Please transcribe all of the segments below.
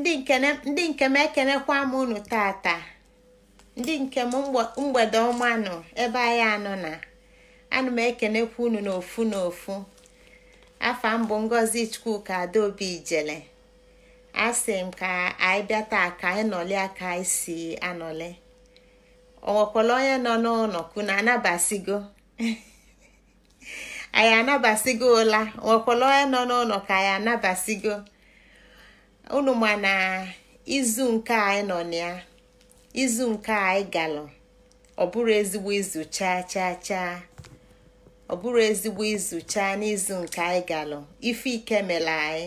ndị nke m ekenekwa m unu tata ndị nke m mgbede ọma nọ ebe anyị anọ na ana m ekenekwa unu n'ofu n'ofu afa m bụ Ngozi Chukwuka Adaobi Ijele asị m ka anyị bịa taa ka anyị nọli ka anyị si anọlị onwekwala onye nọ n'ụlọ kuna anabasigo anyị anabasigo ụla onwekwala onye nọ n'ụlọ ka anyị anabasigo unu ma na izu nke anyị nọ na ya izu nke anyị galụ ọ bụrụ ezigbo izu chaa chaa chaa ọ bụrụ ezigbo izu chaa n'izu nke anyị galụ ife ike mere anyị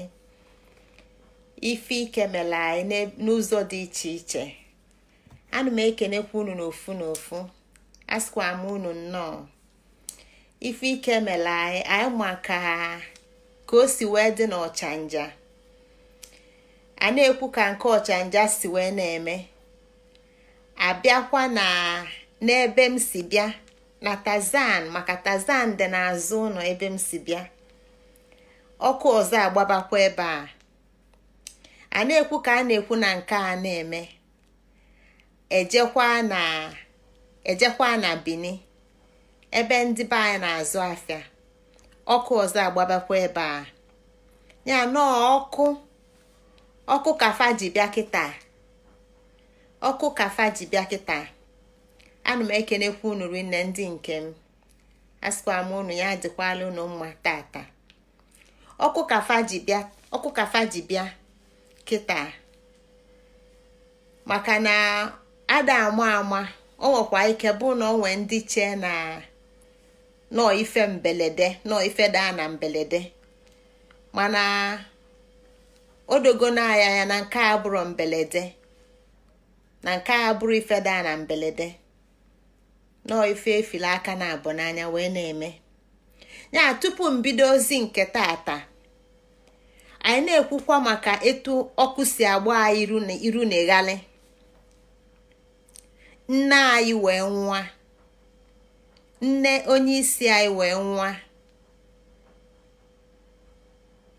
ife ike mere anyị n'ụzọ dị iche iche ana m ekenekwa unu n'ofu n'ofu asịkwa m unu nnọọ ife ike mere anyị anyị ma ka ka o si wee dị n'ọchanja a na-ekwu ka nke ọchanja si wee na-eme abịakwa na n'ebe m si bịa na tazan maka tazan dị n'azụ ụlọ ebe m si bịa ọkụ ọzọ agbabakwa ebe a a na-ekwu ka a na-ekwu na nke a na-eme ejekwa na ejekwa na ebe ndị be anyị na-azụ afịa ọkụ ọzọ agbabakwa ebe a ya nọọ ọkụ ọkụ kafa ji bịa kịta ọkụ kafa ji bịa kịta anụ m ekenekwa unu rinne ndị nke m asịkwa m unu ya dịkwala unu mma tata ọkụ kafa ji bịa ọkụ kafa ji bịa kịta maka na ada ama ama o nwekwa ike bụ na o nwee ndị chee na nọọ ife mbelede nọọ ife daa na mbelede mana o dogo na na nke a bụrụ mbelede na nke a bụrụ ifeda na mbelede nọọ ife efili aka na abụ n'anya wee na-eme ya tupu mbido ozi nke tata anyị na-ekwukwa maka etu ọkụ si agba anyị iru na ịghali nne anyị wee nwa nne onye isi anyị wee nwa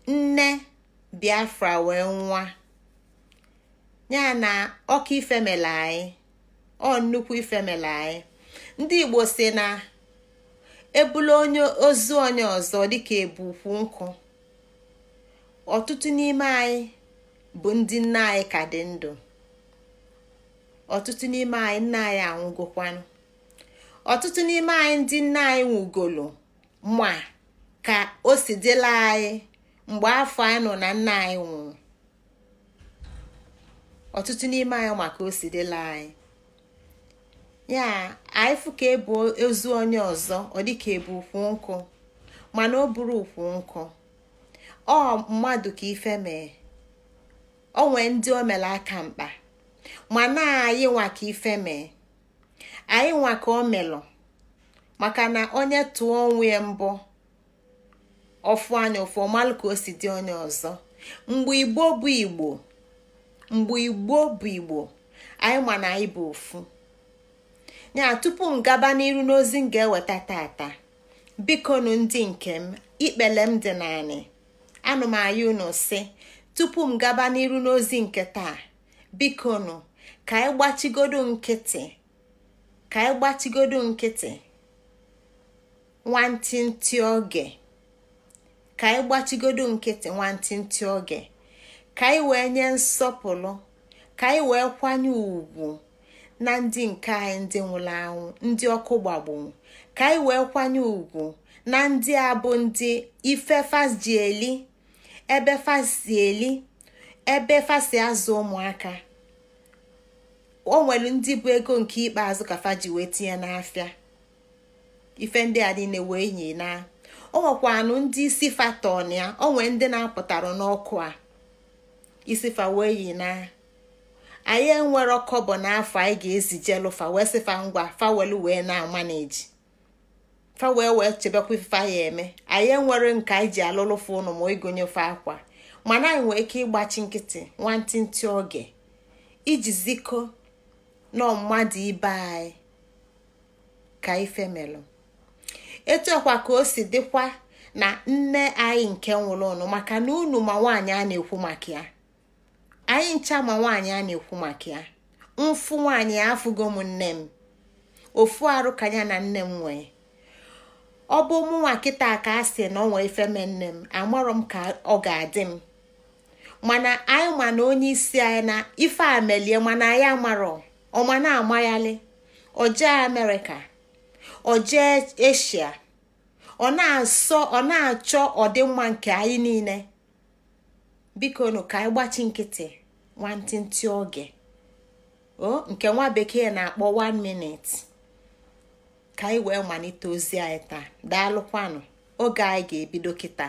nne Biafra wee nwa ya na ọka ifemele anyị ọ nnukwu ifemele anyị ndị Igbo si na ebula onye ozu onye ọzọ dịka ebukwu nkụ ọtụtụ n'ime anyị bụ ndị nna anyị ka dị ndụ ọtụtụ n'ime anyị nna anyị anwụgokwanụ ọtụtụ n'ime anyị ndị nna anyị nwụgolo ma ka o si dịla anyị mgbe afọ anyị nọ na nna anyị nwụrụ ọtụtụ n'ime anyị maka o anyị ya anyị fụ ka ebu ozu onye ọzọ ọ dịka ebu ukwu nkụ mana o buru ukwu nkụ ọ mmadụ ka ife mee o nwee ndị o mere aka mkpa mana anyị nwa ka ife mee anyị nwa ka o melụ maka na onye tụọ onwe ya mbụ ọfụ anya ụfụ ọmalụ ka o si dị onye ọzọ mgbe igbo bụ igbo mgbe igbo bụ igbo anyị ma na anyị bụ ofu ya tupu m gaba n'iru n'ozi m ga-eweta tata bikonu ndị nke m ikpele m dị naanị anụ m anya unu si tupu m gaba n'iru n'ozi nke taa bikonu ka anyị gbachigodo nkịtị ka anyị gbachigodo nkịtị nwantịntị oge ka anyị gbachigodo nkịtị nwantịntị oge ka anyị wee nye nsọpụrụ ka anyị wee kwanye ùgwù na ndị nke anyị ndị nwụrụ anwụ ndị ọkụ gbagburu ka anyị wee kwanye ùgwù na ndị a bụ ndị ife fasji eli ebe fasi eli ebe fasi azụ ụmụaka o nwere ndị bụ ego nke ikpeazụ ka faji wee tinye n'afịa ife ndị a niile wee yi na ọ nwekwanụ ndị isi fatọn ya ọ nwee ndị na apụtara n'ọkụ a isifa wee yi na anyị enwero kọbọ n'afọ anyị ga-ezijelụfa wee sịfa ngwa fawelu wee na-amaneji fawee wee chebekwa ifefe ya eme anyị enwere nke anyị ji alụlụfa ụnụ ma ịgụnyefe akwa mana anyị nwee ike ịgbachi nkịtị nwantịntị oge iji ziko nọ mmadụ ibe anyị ka ife melụ etuekwa ka o si dịkwa na nne anyị nke nwụrụ ụnụ maka na unu ma nwaanyị a na-ekwu maka ya anyị ncha ma nwaanyị a na-ekwu maka ya mfu nwaanyị afụgo m nne m ofu arụ ka ya na nne m nwee ọ bụ mụnwa kịta ka a sị na ọ nwee ifeme nne m amarọ m ka ọ ga-adị m mana anyị ma na onye isi anyị na ife a melie mana anyị amarọ ma na-amayali ọjee amerịka ọ jee eshia ọ na-asọ ọ achọ ọdịmma nke anyị niile biko nụ ka anyị gbachi nkịtị nwantịntị oge o nke nwa bekee na-akpọ 1 minute ka anyị wee malite ozi anyị taa daalụkwanụ oge anyị ga-ebido kịta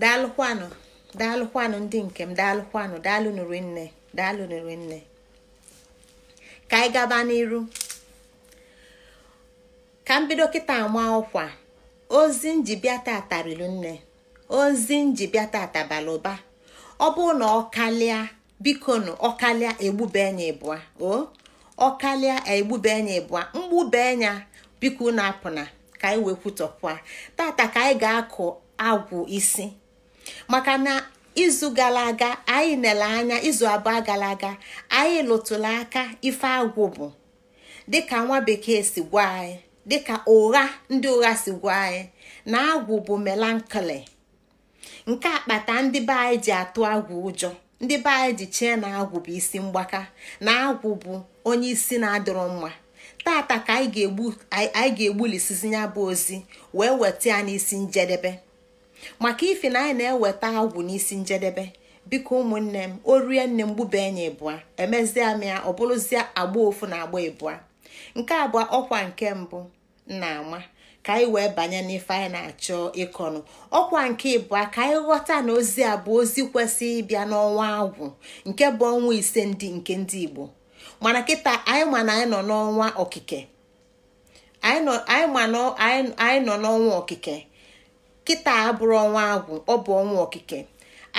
daalụkwanụ daalụkwanụ ndị nke m daalụkwanụ daalụ nụrụ nne daalụ nụrụ nne ka anyị gaba n'iru ka m bido kịta ama ọkwa ozi njibịa tata rilu nne ozi njibịa tata bara ụba ọ bụrụ na ọ kalịa biko nụ ọkalịa egbube anya ịbụa o ọkalịa egbube anya ịbụa mgbube biko na apụna ka anyị wee kwutọpụa tata ka anyị ga-akụ agwụ isi maka na izu gara aga anyị nele anya izu abụọ gara aga anyị lụtụrụ aka ife agwụ bụ dịka nwa bekee si gwa anyị dịka ụgha ndị ụgha si gwa anyị na agwụ bụ melankoli nke akpata ndị be anyị ji atụ agwụ ụjọ ndị be anyị ji chee na agwụ bụ isi mgbaka na agwụ bụ onye isi na-adịrọ mma tata ka anyị ga-egbulisizi ya bụ ozi wee weta ya n'isi njedebe maka ife na anyị na-eweta agwụ n'isi njedebe biko ụmụnne m o rie nne m gbube enyi ịbụa emezie m ya ọ bụrụzie agba ofu na agba ịbụa nke abụọ ọkwa nke mbụ nna ama ka anyị wee banye n'ife anyị na-achọ ịkọnụ ọkwa nke ịbụa ka anyị ghọta na ozi a bụ ozi kwesị ịbịa n'ọnwa agwụ nke bụ ọnwa ise ndị nke ndị Igbo mana kịta anyị ma na anyị nọ n'ọnwa okike anyị nọ n'ọnwa okike kịta abụrụ ọnwa agwụ ọ bụ ọnwa okike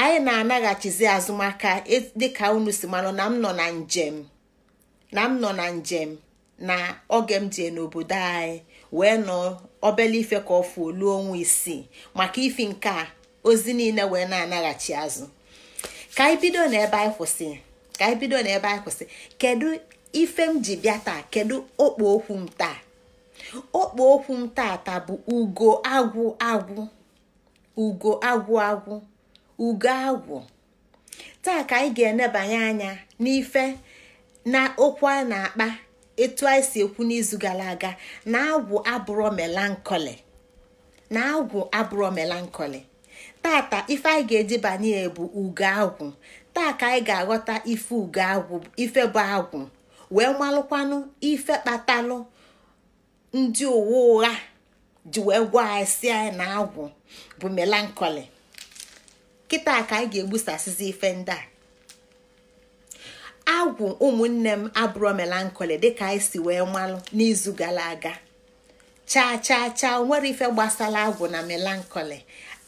anyị na-anaghachizi azụmaka e, dịka unu si manụ na m nọ na njem na m nọ na njem na oge m jee n'obodo anyị wee nọ obele ife ka ọfụ olu ọnwa isii maka ifi nke a ozi niile wee na-anaghachi azụ ka anyị bido n'ebe anyị kwụsị ka anyị bido n'ebe anyị kwụsị kedu ife m ji bịa taa kedu okpo okwu m taa okpo okwu m tata bụ ugo agwụ agwụ ugo agwụ ugo agwụ taa ka anyị ga-enebanye anya n'ife na okwu a na-akpa etu anyị si ekwu n'izu gara aga na agwụ abụrọ melankoli na agwụ melankoli tata ife anyị ga-eji banye bụ ugo agwụ taa ka anyị ga-aghọta ife ugo agwụ ife bụ agwụ wee malụkwanụ ife kpatalụ ndị uwe ụgha ji wee gwa anyị si anyị na agwụ bụ melankoli kịta ka anyị ga-egbusasịzi ife ndị a agwụ ụmụnne m abụrụ melankoli dịka anyị si wee malụ n'izu gara aga chaa chaa chaa nwere ife gbasara agwụ na melankoli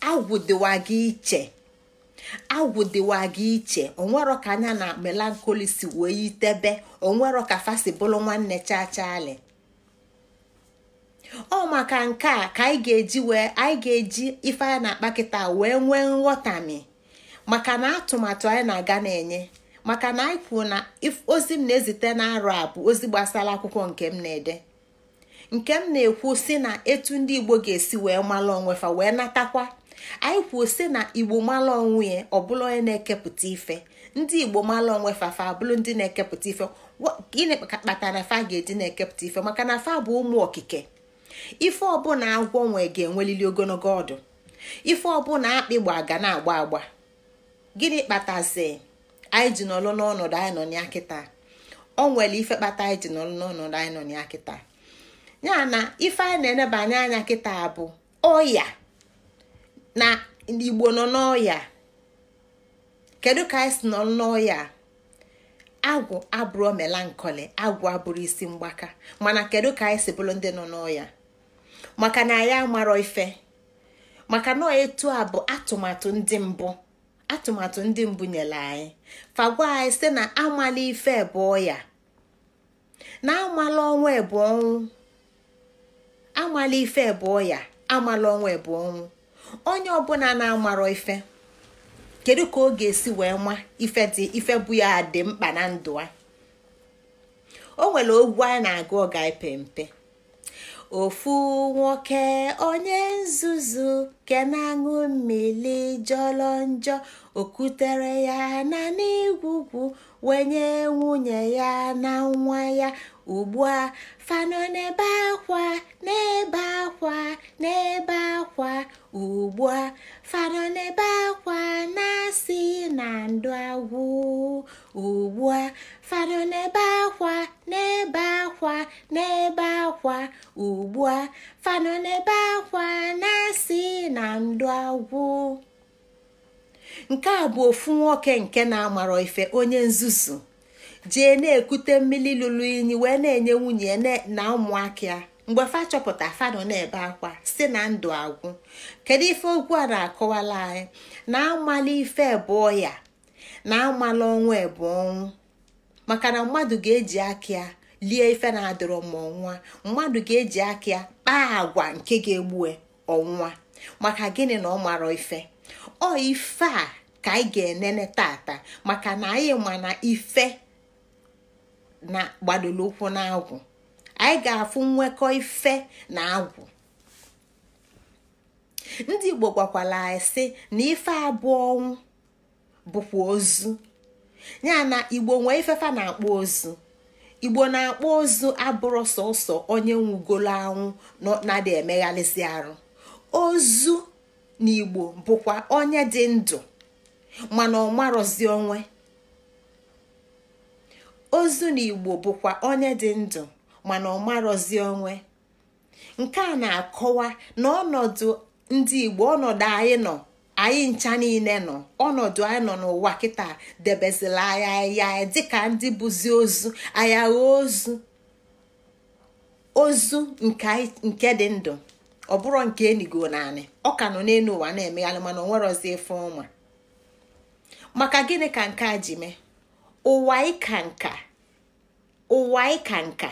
agwụ dịwa gị iche agwụ dịwa iche onwero ka anya na melankoli si wee yitebe onwero ka fasi nwanne chachaali ọ maka nke a ka anyị ga-eji wee anyị ga-eji ife anyị na-akpa kịta wee nwee nghọtami maka na atụmatụ anyị na-aga na-enye maka na anyị kwuo na ozi m na-ezite na-arụ a bụ ozi gbasara akwụkwọ nke m na-ede nke m na-ekwu si na etu ndị igbo ga-esi wee mara onwe fa wee natakwa anyị kwuo si na igbo mara onwe ya bụla onye na-ekepụta ife ndị igbo mara onwe fa fa abụrụ ndị na-ekepụta ife gịnị na fa ga-eji na-ekepụta ife maka na fa bụ ụmụ okike ife ọbụla agwọ nwe ga-enwelili ogologo ọdụ ife ọbụla akpị gba ga na-agba agba gịnị kpatazi anyị ji nọlụ n'ọnọdụ anyị nọ ya kịta o nwere ife kpata anyị ji nọlụ n'ọnọdụ anyị nọ ya kịta ya na ife anyị na-enebanye anya kịta bụ ọya na igbo nọ n'ọya kedu ka anyị si nọlụ n'ọya agwụ abụrụ melankoli agwụ abụrụ isi mgbaka mana kedu ka anyị si bụrụ ndị nọ n'ọya maka na ya amarọ ife maka na etu a bụ atụmatụ ndị mbụ atụmatụ ndị mbụ nyere anyị fagwa anyị site na amala ife bụ ọya na amala ọnwa bụ ọnwụ amala ife bụ ọya amala ọnwa bụ ọnwụ onye ọbụla na-amarọ ife kedu ka ọ ga-esi wee nwa ife dị ife bụ ya dị mkpa na ndụ a o nwere ogwu anyị na-agụ ọga ipe mpe ofu nwoke onye nzuzu ke na-aṅụ mmiri njọ okutere ya na n'igwugwu wenye nwunye ya na nwa ya ugbu a fanọ n'ebe akwa n'ebe akwa n'ebe akwa ugbu a fanọ n'ebe akwa na-asị na ndụ agwụ ugbu a fado n'ebe akwa n'ebe akwa n'ebe akwa ugbu a fado n'ebe akwa na-asị na ndụ agwụ nke a bụ ofu nwoke nke na amara ife onye nzuzu jee na-ekute mmiri lụrụ inyi wee na-enye nwunye na ụmụaka ya mgbe fa chọpụta fanụ na-ebe akwa si na ndụ agwụ kedu ife okwu a na-akọwala anyị na amala ife bụ ọya na amala ọnwụ bụ ọnwụ maka na mmadụ ga-eji akịa lie ife na-adọrọ ma ọnwa mmadụ ga-eji akịa kpaa agwa nke ga-egbue ọnwa maka gịnị na ọ mara ife ọ ife a ka anyị ga-enene tata maka na anyị ma na ife na gbadoro ụkwụ na agwụ anyị ga-afụ nwekọ ife na agwụ ndị igbo gwakwala anyị sị na ife abụọ ọnwụ bụkwa ozu ya na igbo nwee ifefa na-akpụ ozu igbo na-akpụ ozu abụrụ sọsọ onye nwugolo anwụ na-adị emeghalịsị arụ ozu na igbo bụkwa onye dị ndụ mana ọ marọzi onwe na igbo bụkwa onye dị ndụ mana ọ onwe nke a na-akọwa na ọnọdụ ndị igbo ọnọdụ anyị nọ anyị ncha niile nọ ọnọdụ anyị nọ n'ụwa kịta debezila anya ya dịka ndị bụzi ozu anya ozu ozu nke dị ndụ ọ bụrụ nke enigo naanị ọ ka nọ n'elu ụwa na-emegharị mana ọ nwerozi efe ọnwa maka gịnị ka nke a ji mee ụwa ịka nka ụwa ịka nka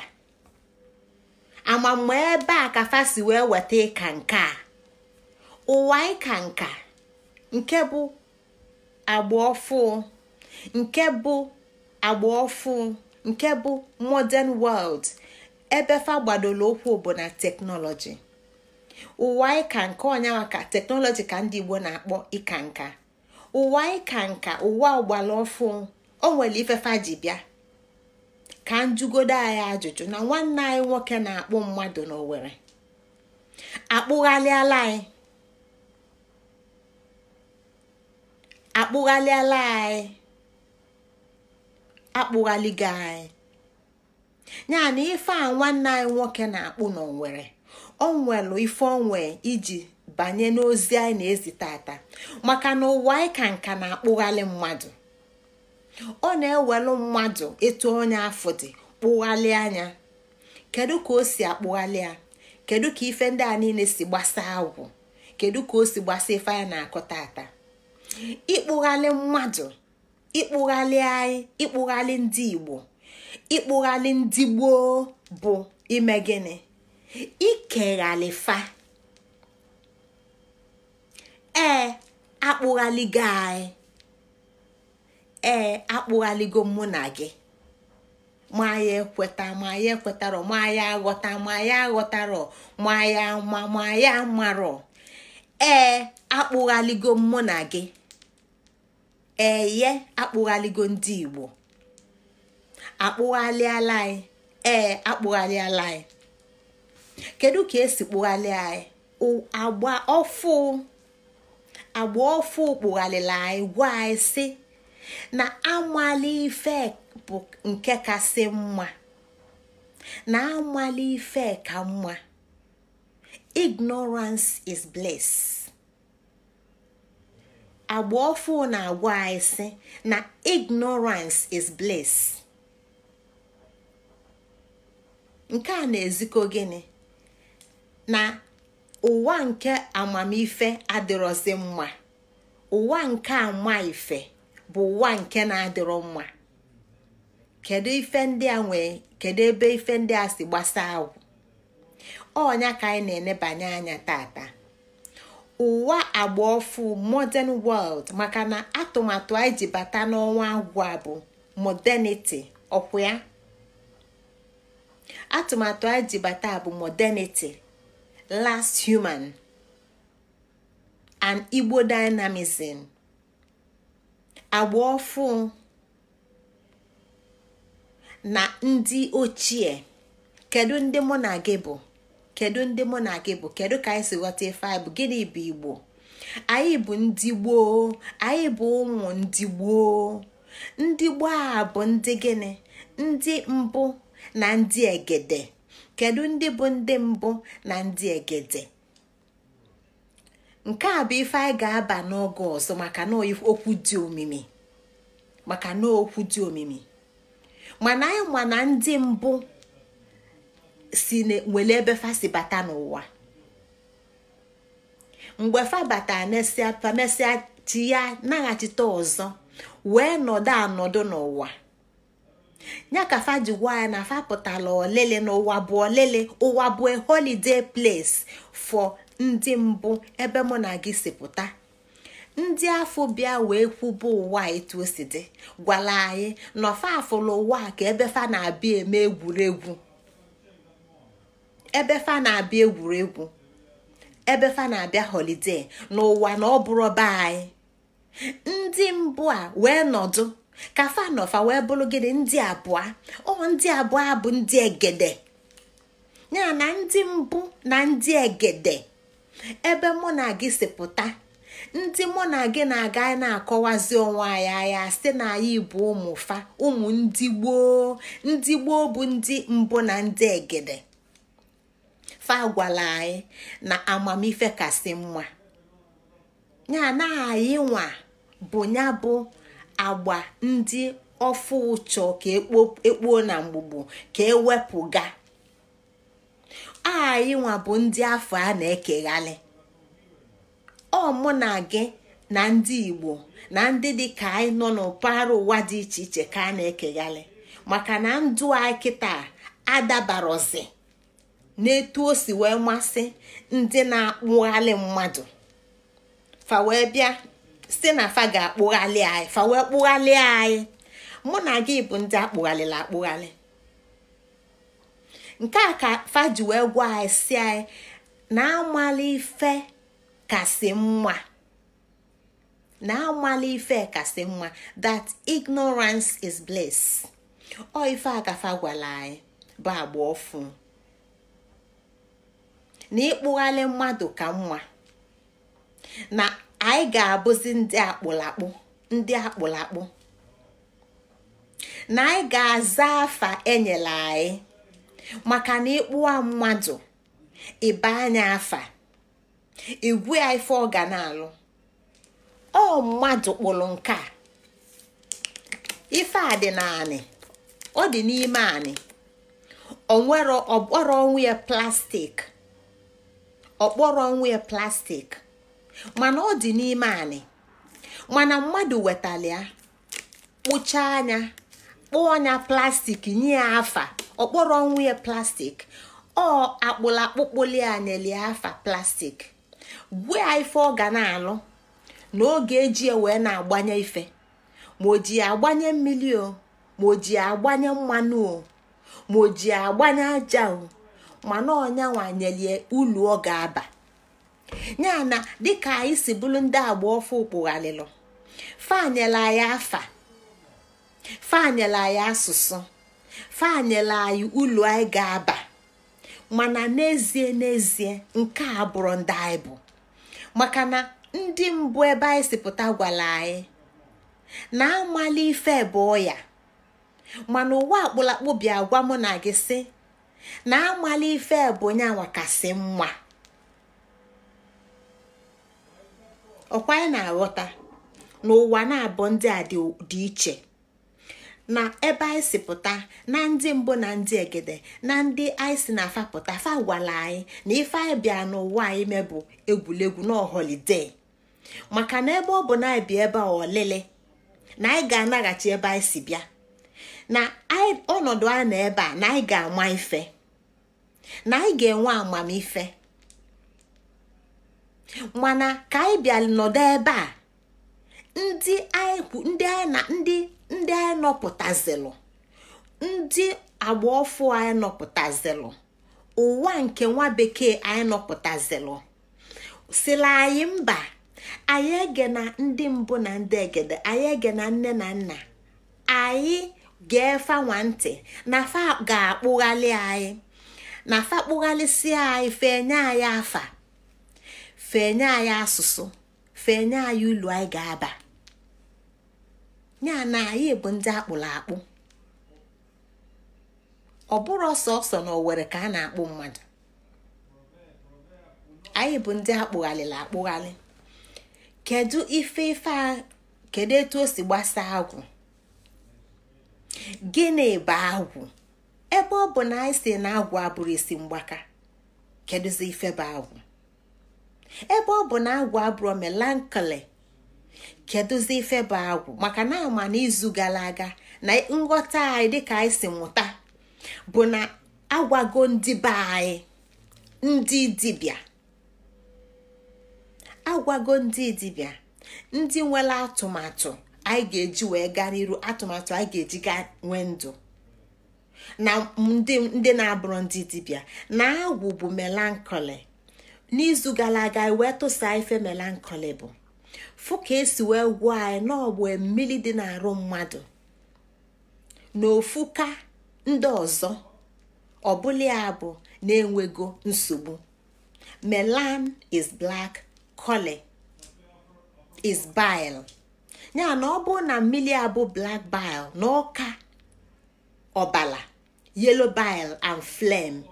amamma ebe a ka fasi wee weta ịka nka ụwa ịka nka nke bụ agba ọfụ nke bụ agba ọfụ nke bụ modern world ebe fa gbadoro okwu bụ na teknọlọji ụwa ịka nka ọnyanwa ka teknọlọji ka ndị Igbo na-akpọ ịka nka ụwa ịka nka ụwa ọgbara ọfụ o nwere ifefa ji bịa ka njugodo anyị ajụjụ na nwanne anyị nwoke na-akpụ mmadụ n'Owerri akpụghalịala anyị akpụghalịala anyị akpụghaligo anyị ya na ife a nwanne anyị nwoke na-akpụ n'onwere onwelu ife onwe iji banye n'ozi anyị na-ezi tata maka na ụwa anyị ka nka na-akpụghalị mmadụ ọ na-ewelu mmadụ ịtụ onye afọ dị kpụghalị anya kedu ka o si akpụghalị ya kedu ka ife ndị a niile si gbasaa agwụ kedu ka o si gbasaa ife anyị na-akọ tata ịkpụghalị mmadụ ịkpụghalị anyị ịkpụghalị ndị igbo ịkpụghalị ndị gboo bụ ime gịnị ikeghalịfa ee akpụghaligo anyị ee akpụghaligo mụ na gị ma ya ekweta ma ya ekwetarọ ma aghọta ma ya aghọtarọ ma ya ma ma ya marọ ee akpụghaligo mụ na gị eye akpụghaligo ndị igbo akpụghalịala anyị ee anyị kedu ka esi kpụghalị anyị agba ọfụ agba ọfụ kpụghalịla anyị gwa anyị si na amali ife bụ nke kasị mma na amali ife ka mma ignorance is bliss agba ofu na-agwa anyị si na ignorance is bliss nke a na-ezikọ gịnị na ụwa nke amamife adịrọzi mma ụwa nke ama ife bụ ụwa nke na-adịrọ mma kedu ife ndị a nwee kedu ebe ife ndị a si gbasa agwụ ọnya ka anyị na-enebanye anya tata ụwa agbaofu modern world maka na atụmatụ anyị ji bata n'ọnwa agwa bụ modernity ọkwụ ya atụmatụ anyị ji bata bụ modernity last human and igbo dynamism agbaofu na ndị ochie kedu ndị mụ na gị bụ kedu ndị mụ na gị bụ kedu ka anyị si ghọta ife anyị bụ gịnị bụ igbo anyị bụ ndị gboo anyị bụ ụmụ ndị gboo ndị gboo a bụ ndị gịnị ndị mbụ na ndị egede kedu ndị bụ ndị mbụ na ndị egede nke a bụ ife anyị ga-aba n'oge ọzọ maka na okwu dị omimi maka na okwu dị omimi mana anyị ma na ndị mbụ si wele ebe ebefa si bata n'ụwa mgbe fa bata mesịa chi ya naghachite ọzọ wee nọdụ anọdụ n'ụwa ya ka fa gwa ya na fa pụtara olele n'ụwa bụ olele ụwa bụ holiday place for ndị mbụ ebe mụ na gị si pụta ndị afọ bịa wee kwụbụ ụwa etu o si dị gwara anyị nọfa afụla ụwa ka ebe fa na-abịa eme egwuregwu ebe fa na-abịa egwuregwu ebe fa na-abịa holide n'ụwa na ọ bụrụ be anyị ndị mbụ a wee nọdụ ka fa wee bụrụ gịnị ndị abụọ ọ ndị abụọ bụ ndị egede ya na ndị mbụ na ndị egede ebe mụ na gị si pụta ndị mụ na gị na-aga na-akọwazi onwe anyị anya si na anyị bu ụmụ fa ụmụ ndị gboo ndị gboo bụ ndị mbụ na ndị egede ife agwala anyị na amamife kasị mma ya na anyị nwa bụ ya bụ agba ndị ọfụ ụchọ ka ekpuo e na mgbugbu ka ewepụga anyị nwa bụ ndị afọ a na-ekeghalị ọ mụ na gị na ndị igbo na ndị dị ka anyị nọ n'ụpaghara ụwa dị iche iche ka a na-ekeghalị maka na ndụ anyị kịta adabarozi n'etu o si wee masị ndị na-akpụghalị mmadụ fa wee bịa si na fa ga-akpụghalị anyị fa wee kpụghalị anyị mụ na gị bụ ndị akpụghalịla akpụghalị nke a ka fa ji wee gwa anyị si anyị na amala ife kasị mma na amala ife kasị mma that ignorance is bliss ọ ife a ka fa gwara anyị bụ agba na ịkpụghalị mmadụ ka nwa na anyị ga-abụzi ndị akpụlakpụ ndị akpụlakpụ na anyị ga-aza afa enyela anyị maka na ịkpụwa mmadụ ịba anya afa igwe ya ife ọ ga na-alụ ọ mmadụ kpụrụ nke a ife a dị naanị ọ dị n'ime anị onwere ọnwụ ya plastik ọkpọrọ onwe plastik mana ọ dị n'ime anị mana mmadụ wetara kpụchaa anya kpụọ anya plastik nye ya afa ọkpọrọ ya plastik ọ akpụla akpụlakpụkpụli anyeli afa plastik gwe ya ife ọ ga na-alụ na oge eji ewe wee na-agbanye ife ma ọ ji agbanye mmiri o ma ọ ji agbanye mmanụ o ma ọ ji agbanye aja mana ọnyanwanyelie ulu ọ ga-aba ya na dịka anyị si bụrụ ndị agba ọfụ kpụghalịlụ fanyela anyị afa fanyela anyị asụsụ fanyela anyị ulu anyị ga-aba mana n'ezie n'ezie nke a bụrụ ndị anyị bụ maka na ndị mbụ ebe anyị si pụta gwara anyị na amala ife bụ ya mana ụwa akpụlakpụ bịa gwa mụ na gị sị na amala ife bụ onye anwakasị mma ọkwa anyị na-aghọta n'ụwa na-abụ ndị a dị iche na ebe anyị si pụta na ndị mbụ na ndị egede na ndị anyị si na afapụta fa gwala anyị na ife anyị bịa n'ụwa anyị mebụ egwuregwu na holiday maka na ebe ọ bụ na anyị bi ebe a ọlele na anyị ga-anaghachi ebe anyị si bịa na ọnọdụ a na ebe a na anyị ga-ama ife na anyị ga-enwe amamife mana ka anyị bịa nọdụ ebe a ndị anyị nọpụtazilụ ndị agba ọfụ anyị nọpụtazilụ ụwa nke nwa bekee anyị nọpụtazilụ sila anyị mba anyị ege na ndị mbụ na ndị egede anyị ege na nne na nna anyị ga ntị na fa ga anyị na afa kpụghalịsịa anyị fenye anyị afa fenye anyị asụsụ fenye anyị ụlọ anyị ga-aba ya na anyị bụ ndị akpụrụ akpụ ọ bụrụ ọsọ ọsọ na owere ka a na-akpụ mmadụ anyị bụ ndị akpụghalịla akpụghalị kedu ife ife a, kedu etu o si gbasaa agwụ gịnị bụ agwụ ebe ọ bụ na anyị si na agwụ abụrụ isi mgbaka kedụzi ife bụ agwụ ebe ọ bụ na agwụ abụrụ melankoli kedụzi ife bụ agwụ maka na ama na izu gara aga na nghọta anyị dịka anyị si mụta bụ na agwago ndị be anyị ndị dibịa agwago ndị dibịa ndị nwere atụmatụ anyị ga-eji wee gaa iru atụmatụ anyị ga-eji gaa nwee ndụ na ndị na-abụrụ ndị dibịa na agwụ bụ melankoli n'izu gara aga wee tụsa ife melankoli bụ fụ ka esi wee gwuo anyị n'ọgbụ mmiri dị n'arụ mmadụ na ka ndị ọzọ ọbụla ya bụ na-enwego nsogbu melan is black koli is bile ya na ọ bụrụ na mmiri abụ black bile na ọka ọbala yelo bile and flem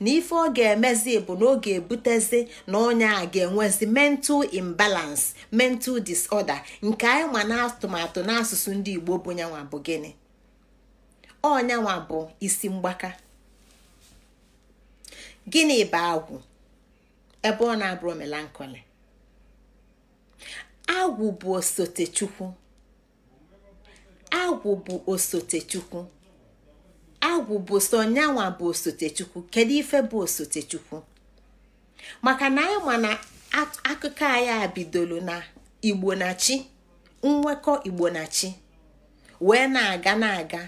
na ife ọ ga-emezi bụ na ọ ga-ebutezi na onye a ga-enwezi mental imbalance mental disorder nke anyị ma na atụmatụ n'asụsụ ndị igbo bụ nyanwa bụ gịnị ọnyanwa bụ isi mgbaka gịnị bụ agwụ ebe ọ na-abụrụ melankoli agwụ bụ osote chukwu agwụ bụ osote chukwu agwụ bụ so bụ osotechukwu kedu ife bụ osotechukwu maka na anyị ma na akụkọ anyị bidoro na igbo na chi nwekọ igbo na chi wee na-aga na-aga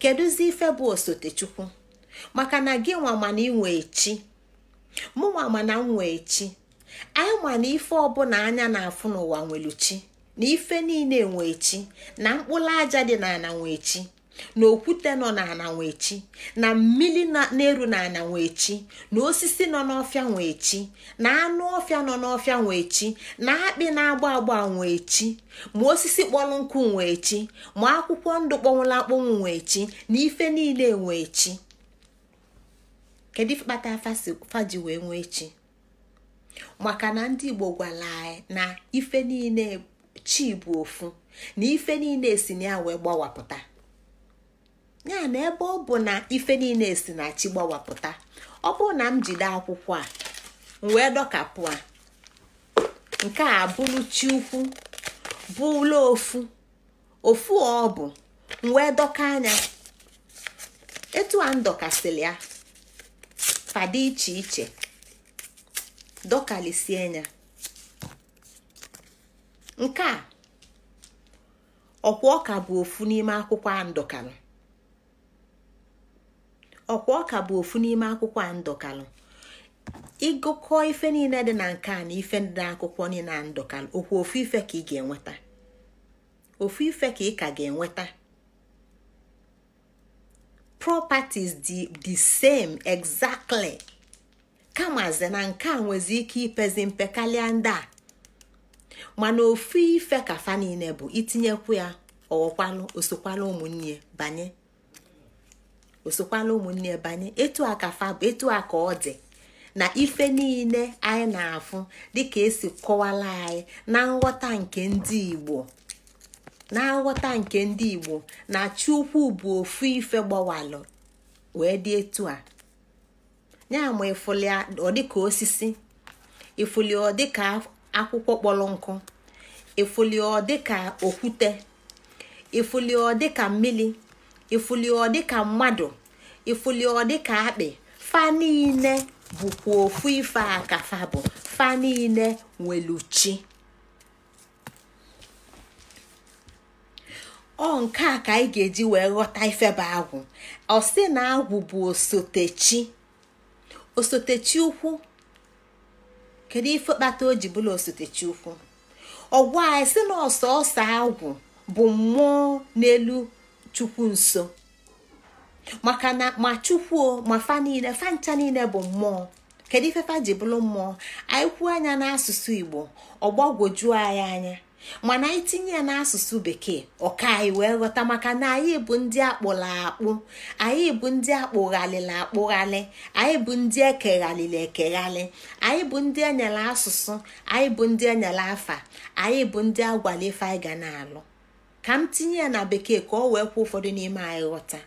kedụzi ife bụ osotechukwu maka na gị nwa mana ị nwee chi mụ nwa mana m nwee chi anyị ma na ife ọbụla anya na-afụ n'ụwa nwere chi na ife niile nwee chi na mkpụrụ aja dị n'ala nwee chi na okwute nọ n'ana nwechi na mmiri na-eru n'ana nwechi na osisi nọ n'ọfịa nwechi na anụ ọfịa nọ n'ọfịa nwechi na akpị na-agba agba nwechi ma osisi kpọrọ nkụ nwechi ma akwụkwọ ndụ kpọnwụla akpọnwụ nwechi na ife niile nwechi kedu kpata faji wee nwee chi maka na ndị igbo gwara anyị na ife niile chi bụ ofu na ife niile si na ya wee gbawapụta ya na ebe ọ bụ na ife niile si na chi gbawapụta ọ bụrụ na m jide akwụkwọ a m wee dọkapụ a nke a bụrụ chi ukwu bụla ofu ofu ọ bụ m wee dọka anya etu a m ya fadị iche iche dọkalisie anya nke a ọkwa ọka bụ ofu n'ime akwụkwọ a ndọkara ọkwa ọka bụ ofu n'ime akwụkwọ a ndọkalụ ịgụkọ ife niile dị na nke a na ife dị akwụkwọ niile a ndọkalụ okwu ofu ife ka ị ga-enweta ofu ife ka ị ga-enweta properties dị the same exactly kamaze na nke a nwezi ike ipezi mpe karịa ndị a mana ofu ife ka fa niile bụ itinyekwu ya ọghọkwalụ osokwala ụmụnne banye osokwala ụmụnne banye etu a ka fa etu a ka ọ dị na ife niile anyị na-afụ dịka esi kọwala anyị na nghọta nke ndị Igbo na nghọta nke ndị Igbo na Chukwu bụ ofu ife gbawalụ wee dị etu a ya ma ịfụli ọ dịka osisi ịfụli ọ dịka akwụkwọ kpọrọ nkụ ịfụli ọ dịka okwute ịfụli ọ dịka mmiri ifuli ọ dịka mmadụ ifuli ọ dịka akpị fa niile bụkwa ofu ife akafa bụ fa niile nweluchi ọ nke a ka anyị ga-eji wee ghọta ifeba agwụ ọsị na agwụ bụ osotechi osotechi ukwu kedu ife kpata o ji bụla osotechi ukwu ọgwụ anyị sị na ọsọ agwụ bụ mmụọ n'elu chukwu nso maka na ma chukwuo ma fa niile fa ncha niile bụ mmụọ kedu ife fa ji bụrụ mmụọ anyị kwuo anya n'asụsụ igbo ọgbagwojuo anyị anya mana anyị tinye ya n'asụsụ bekee ọka anyị wee ghọta maka na anyị bụ ndị akpụla akpụ anyị bụ ndị akpụghalịla akpụghalị anyị bụ ndị ekeghalịla ekeghali anyị bụ ndị enyere asụsụ anyị bụ ndị enyere afa anyị bụ ndị agwala ife anyị ga na-alụ ka m tinye ya na bekee ka ọ wee kwuo ụfọdụ n'ime anyị ghọta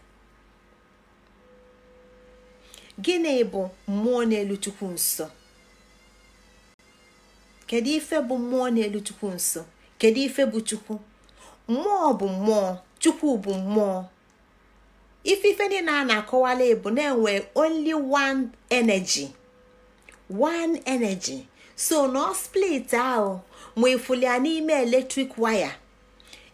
gịnị bụ mmụọ n'elu chukwu nsọ kedu ife bụ mmụọ n'elu chukwu nsọ kedu ife bụ chukwu mmụọ bụ mmụọ chukwu bụ mmụọ ife ife niile a na-akọwala bụ na-enwe only one energy one energy so na split ahụ ma ya n'ime eletrik waya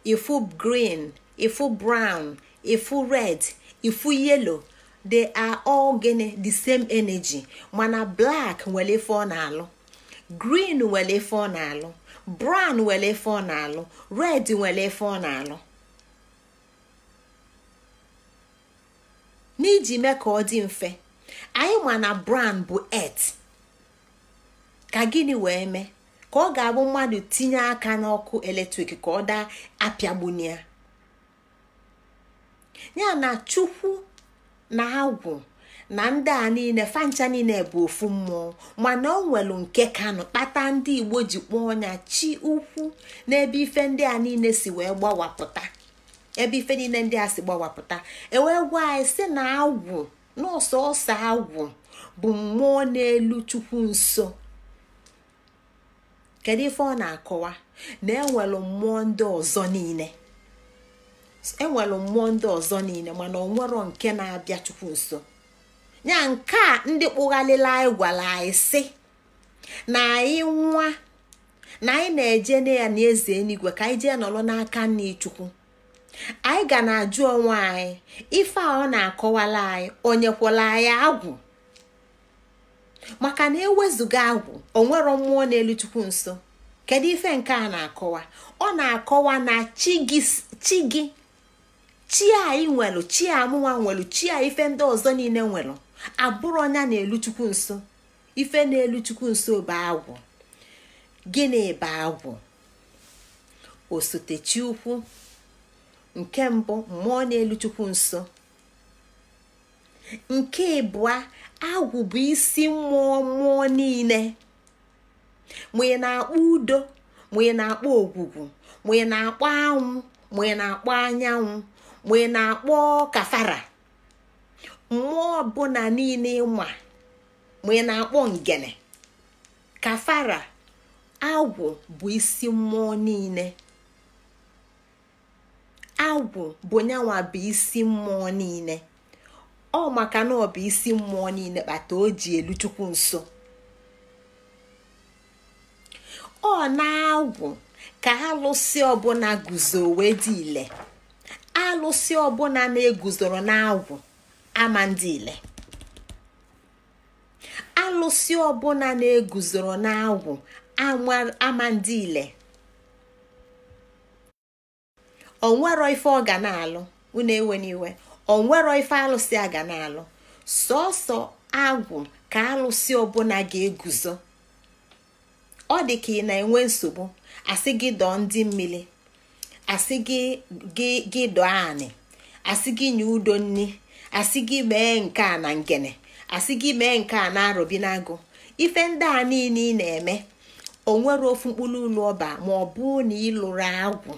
ifu green ifu brown ifu red ifu yellow they are all gịnị the same energy mana blak nwere ife ọ na-alụ green nwere ife ọ na-alụ brown nwere ife ọ na-alụ red nwere ife ọ na-alụ n'iji mee ka ọ dị mfe anyị mana na brown bụ earth ka gịnị wee mee ka ọ ga-abụ mmadụ tinye aka n'ọkụ eletrik ka ọ daa apịagbunia ya ya na chukwu na agwụ na ndị a niile fancha niile bụ ofu mmụọ mana ọ nwelu nke kanụ kpata ndị igbo ji kpọọ ọnya chi ukwu n'ebe ife ndị a niile si wee gbawapụta ebe ife niile ndị a si gbawapụta ewee gwa anyị si na agwụ na ọsọ agwụ bụ mmụọ n'elu chukwu nso kedu ife ọ na-akọwa na enwelu mmụọ ndị ọzọ niile mmụọ ndị ọzọ niile mana ọ nwero nke na-abịa chukwu nso ya nke a ndị kpụghalịla anyị gwara anyị sị na anyị nwa na anyị na-eje na ya na eze eluigwe ka anyị jee nọrọ n'aka nne chukwu anyị ga na-ajụ onwe anyị ife a ọ na-akọwala anyị onyekwala anyị agwụ maka na ewezụga agwụ onwero mmụọ na chukwu nso kedu ife nke a na-akọwa ọ na-akọwa na chi gị chi anyị nwelu chi amụwa nwelu chi a ife ndị ọzọ niile nwelu abụrụ ọnya na elu chukwu nso ife na chukwu nso bụ agwụ gịnị bụ agwụ osote chi ukwu nke mbụ mmụọ na chukwu nso nke ịbụa agwụ bụ isi mmụọ mmụọ niile ma na-akpọ udo ma na-akpọ ogwugwu ma na-akpọ anwụ ma na-akpọ anyanwụ ma na-akpọ kafara mmụọ ọbụla niile ma ma na-akpọ ngene kafara agwụ bụ isi mmụọ niile agwụ bụ nyanwa bụ isi mmụọ niile ọ maka na ọ bụ isi mmụọ niile kpata o ji elu chukwu nso ọ na-agwụ ka alụsị ọbụla guzo wee dị ile alụsị ọbụla na-eguzoro na-agwụ ama ndị ile alụsị ọbụla na-eguzoro na-agwụ ama ndị ile onwero ife ọ ga na-alụ unu ewe n'iwe onwero ife alụsị a ga na-alụ sọsọ agwụ ka alụsị ọbụla ga-eguzo ọ dị ka ị na-enwe nsogbu asị gị dọọ ndị mmiri asị gị dọọ anị asị gị nye udo nni asị gị mee nke a na ngene asị gị mee nke a na-arọbi n'agụ ife ndị a niile ị na-eme onwere ofu mkpụrụ ụlọ ọba ma ọ bụ na ịlụrụ agwụ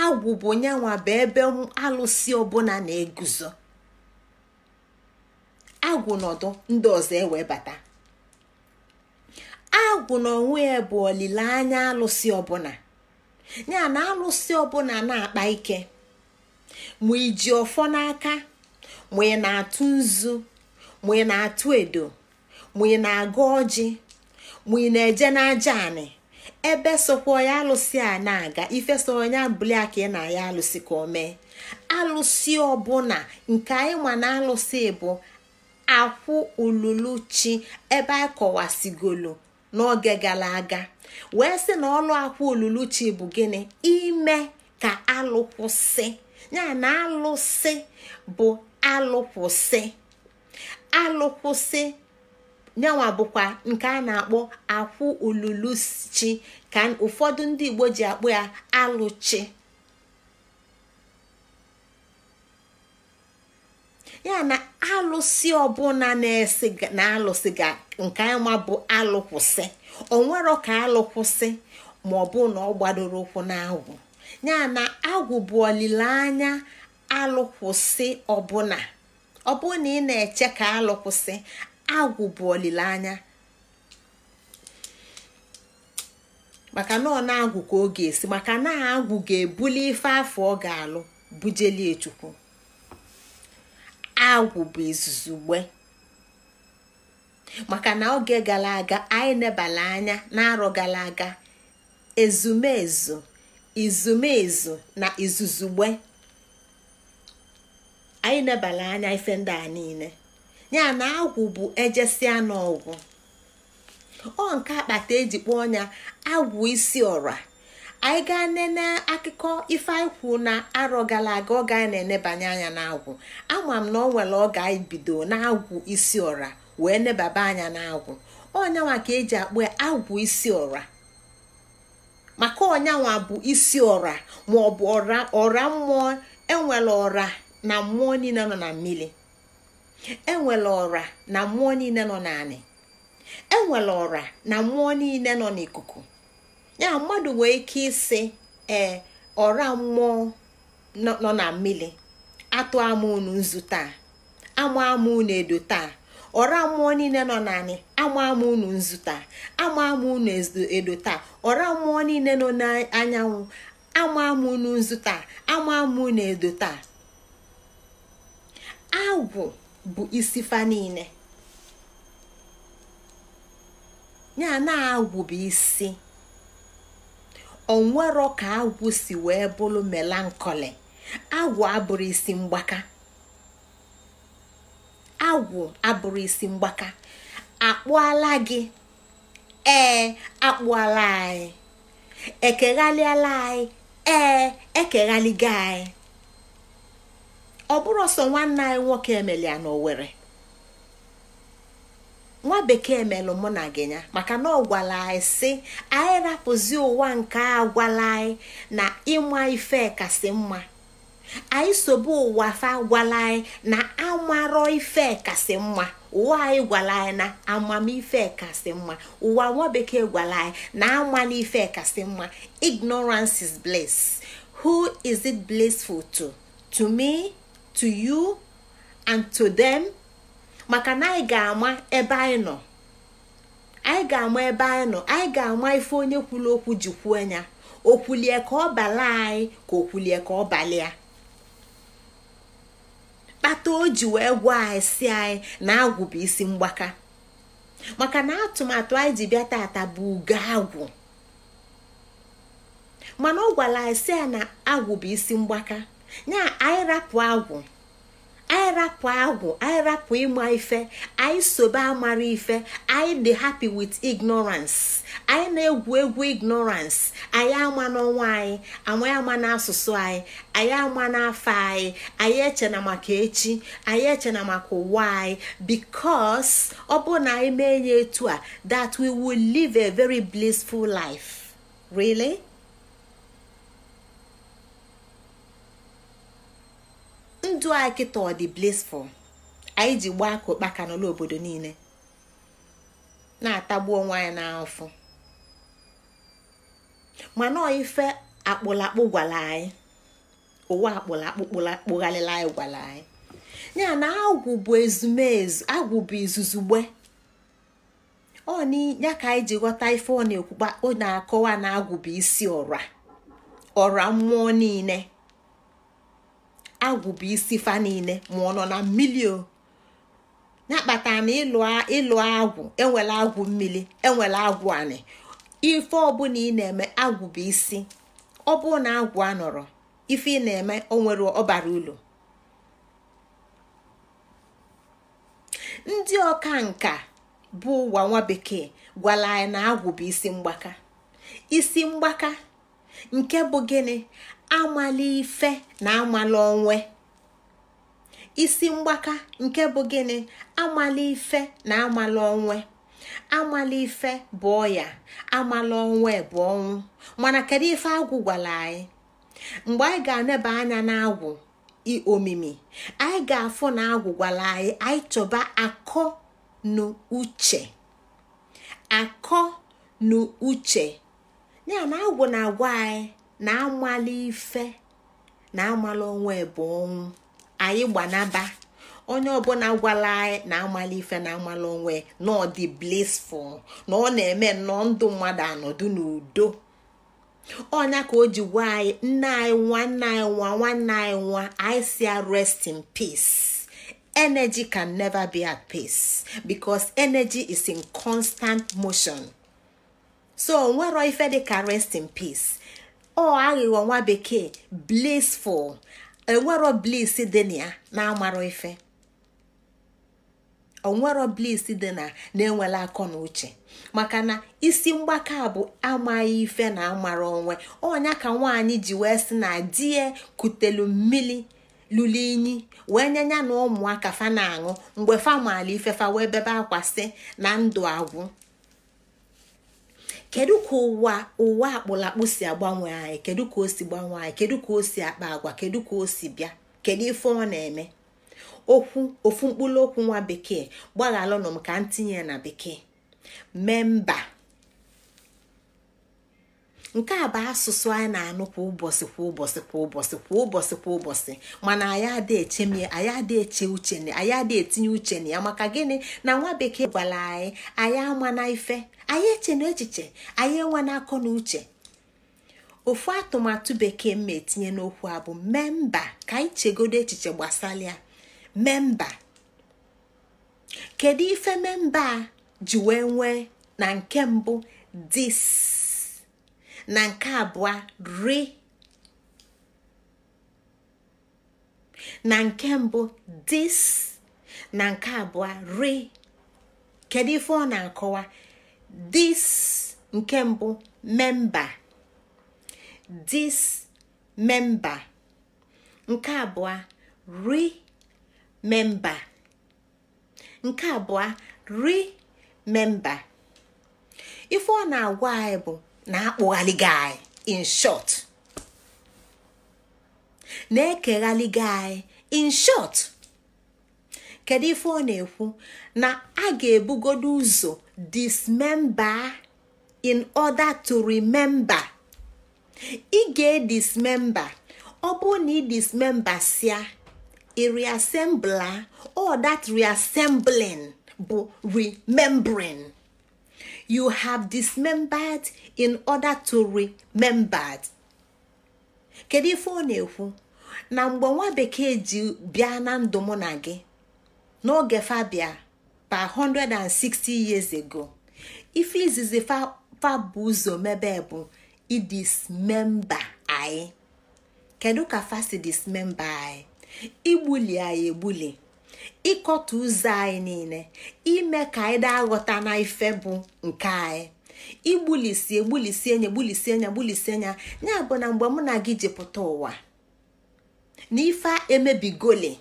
agwụ bụ bụ ebe alụsị ọbụla na-eguzo agwụ nọdụ ndị ọzọ ewebata agwụ n'onwe ya bụ olileanya alụsị ọbụla ya na alụsị ọbụla na-akpa ike ma iji ọfọ n'aka ma ị na-atụ nzu ma ị na-atụ edo ma ị na-aga ọjị ma ị na-eje n'aja anị ebe sokwa ya alụsị a na-aga ife so onye abụli aka ị na ya alụsị ka o mee alụsị ọbụla nke anyị ma na alụsị bụ akwụ olulu chi ebe anyị kọwasigolo n'oge gara aga wee sị na ọlụ akwụ olulu chi bụ gịnị ime ka alụkwụsị ya na alụsị bụ alụkwụsị alụkwụsị nyanwa bụkwa nke a na-akpọ akwụ chi ka ụfọdụ ndị igbo ji akpọ ya alụchi ya na alụsị ọbụla na-esi na alụsị ga nke ama bụ alụkwụsị onwero ka alụkwụsị ma ọ bụ na ọ gbadoro ụkwụ agwụ ya na agwụ bụ olileanya alụkwụsị ọbụla ọ na ị na-eche ka alụkwụsị agwụ bụ olileanya maka na ọ na-agwụ ka ọ ga-esi maka na agwụ ga-ebuli ife afọ ọ ga-alụ bujelie chukwu agwụ bụ izuzugbe maka na oge gara aga anyị nebala anya na-arọ gara aga ezumezu izumezu na izuzugbe anyị nebala anya ife ndị a niile ya na agwụ bụ ejesia n'ọgwụ ọ nke akpata eji kpọọ ọnya agwụ isi ọra anyị gaa nene akụkọ ife anyị kwuo na arọ gara aga ọ gaa na-enebanye anya n'agwụ ama m na ọ nwere oge anyị bido n'agwụ isi ọra wee nebaba anya n'agwụ ọnyanwa ka eji akpọ ya agwụ isi ọra maka ọnyanwa bụ isi ọra ma ọ bụ ọra mmụọ enwere ọra na mmụọ niile nọ na mmiri enwere ọra na mmụọ niile nọ n'anị enwere ọra na mmụọ niile nọ n'ikuku ya mmadụ nwee ike isi ee ọra mmụọ nọ na mmiri atụ ama unu nzu taa ama ama unu edo taa ọra mmụọ niile nọ n'anị ama ama unu nzu taa ama ama unu edo taa ọra mmụọ niile nọ n'anyanwụ ama ama unu nzu taa ama ama unu edo taa agwụ bụ isi fa niile ya na-agwụ bụ isi onwero ka agwụ si wee bụrụ melankoli agwụ abụrụ isi mgbaka agwụ abụrụ isi mgbaka akpụala gị ee akpụala anyị ekeghalịala anyị ee ekeghaligo anyị ọ bụrụ ọsọ nwanne anyị nwoke emelia na Owerri nwa bekee melụ mụ na gị ya maka na ọ gwara anyị sị anyị rapụzi ụwa nke a anyị na ịma ife kasị mma anyị sobe ụwa fa gwala anyị na amarọ ife kasị mma ụwa anyị gwala anyị na amamife kasị mma ụwa nwa bekee gwara anyị na amala ife kasị mma ignorance is bliss who is it blissful to to me to you and to them maka na anyị ga-ama ebe anyị nọ anyị ga-ama ebe anyị nọ anyị ga-ama ife onye kwuru okwu ji kwuo ya okwulie ka ọ bala anyị ka okwulie ka ọ balịa kpata o ji wee gwa anyị si anyị na agwụ bụ isi mgbaka maka na atụmatụ anyị ji bịa tata bụ ugo agwụ mana ọ gwara anyị si ya na agwụ bụ isi mgbaka na anyị rapụ agwụ anyị agwụ ịma ife anyị sobe amara ife anyị dị happy with ignorance anyị na-egwu egwu ignorance anyị ama n'ọnwa anyị anyị ama n'asụsụ anyị anyị ama n'afọ anyị anyị echena maka echi anyị echena maka ụwa anyị because ọ bụ na anyị mee ya etu a that we will live a very blissful life really. ndụ anyị kịta ọ dị blissful anyị ji gbaa ka ụkpaka n'ụlọ obodo niile na-atagbu onwe anyị n'afọ mana ife akpụlakpụ gwara anyị ụwa akpụlakpụ kpụgharịla anyị gwara anyị ya na agwụ bụ ezumezu agwụ bụ izuzugbe ọ ya ka anyị ji ghọta ife ọ na-ekwukpa ọ na-akọwa na agwụ bụ isi ọra ọra mmụọ niile agwụ bụ isi fa niile ma ọ nọ na mmiri o na-akpata na ịlụ agwụ enwela agwụ mmiri enwela agwụ anị ife ọbụla ị na-eme agwụ bụ isi ọ na agwụ anọrọ ife ị na-eme onwere nwere ọbara ụlọ ndị ọka nka bụ ụwa nwa bekee gwara anyị na agwụ bụ isi mgbaka isi mgbaka nke bụ gịnị amala ife na amala onwe isi mgbaka nke bụ gịnị amala ife na amala onwe amala ife bụ ọya amala onwe bụ ọnwụ mana kedu ife agwụ gwara anyị mgbe anyị ga-aneba anya n'agwụ omimi anyị ga-afụ na agwụ gwara anyị anyị chọba akọ na uche akọ na uche ya na agwụ na-agwa anyị na amala ife na amala onwe bụ ọnwụ anyị gbanaba onye ọbụla gwala anyị na amala ife na amala onwe na ọ dị blissful na ọ na-eme nnọọ ndụ mmadụ anọdụ n'udo ọnya ka o ji gwa anyị nne anyị nwa nna anyị nwa nwanne anyị nwa anyị si rest in peace energy can never be at peace because energy is in constant motion so nwero ife dị ka rest in peace ọ aghịghọ nwa bekee blissful enwero bliss dị na ya na ife onwero na na-enwela akọ na uche maka na isi mgbaka bụ amaghị ife na amara onwe ọnya ka nwaanyị ji wee sị na die kutelu mmiri lụrụ inyi wee nyanya na ụmụaka fa na-aṅụ mgbe fa maala ifefa wee bebe akwa si na ndụ agwụ kedu ka ụwa ụwa akpụlakpụ si agbanwe anyị kedu ka o si gbanwe anyị kedu ka o si akpa agwa kedu ka o si bịa kedu ife ọ na-eme okwu ofu mkpụrụ okwu nwa bekee gbaghalụnụ m ka m tinye na bekee memba nke a bụ asụsụ anyị na-anụ kwa ụbọchị kwa ụbọchị kwa ụbọchị kwa ụbọchị kwa ụbọchị mana anyị adị eche mie anyị adị eche uche anyị adị etinye uche na ya maka gịnị na nwa bekee gwara anyị anyị ama na ife anyị eche na echiche anyị enwe na akọ na uche ofu atụmatụ bekee ma etinye n'okwu a bụ memba ka anyị chegodo echiche gbasara ya memba kedu ife memba a ji wee nwee na nke mbụ dis na nke abụọ ri na nke mbụ dis na nke abụọ ri kedu ife ọ na-akọwa dis nke mbụ memba dis memba nke abụọ ri memba nke abụọ ri memba ife ọ na-agwa anyị bụ na-akpụghalị gị anyị in short na-ekeghalị gị anyị in short kedu ife ọ na-ekwu na a ga-ebugodo ụzọ dismember in order to remember ị ga-edismember ọ bụrụ na ị dismembersia ị reassembla all that reassembling bụ remembering you have dismembered in order to remembered kedu ife ọ na-ekwu na mgbe nwa bekee ji bịa na ndụ mụ na gị n'oge fabia pa 160 years ago ife izizi fa ụzọ mebe bụ idismemba anyị kedu ka fasi dismemba anyị igbuli anyị egbuli ịkọta ụzọ anyị niile ime ka anyị daa aghọta na ife bụ nke anyị igbulisi egbulisi enye egbulisi enye gbulisi enye ya bụ na mgbe mụ na gị jepụta ụwa na ife emebigoli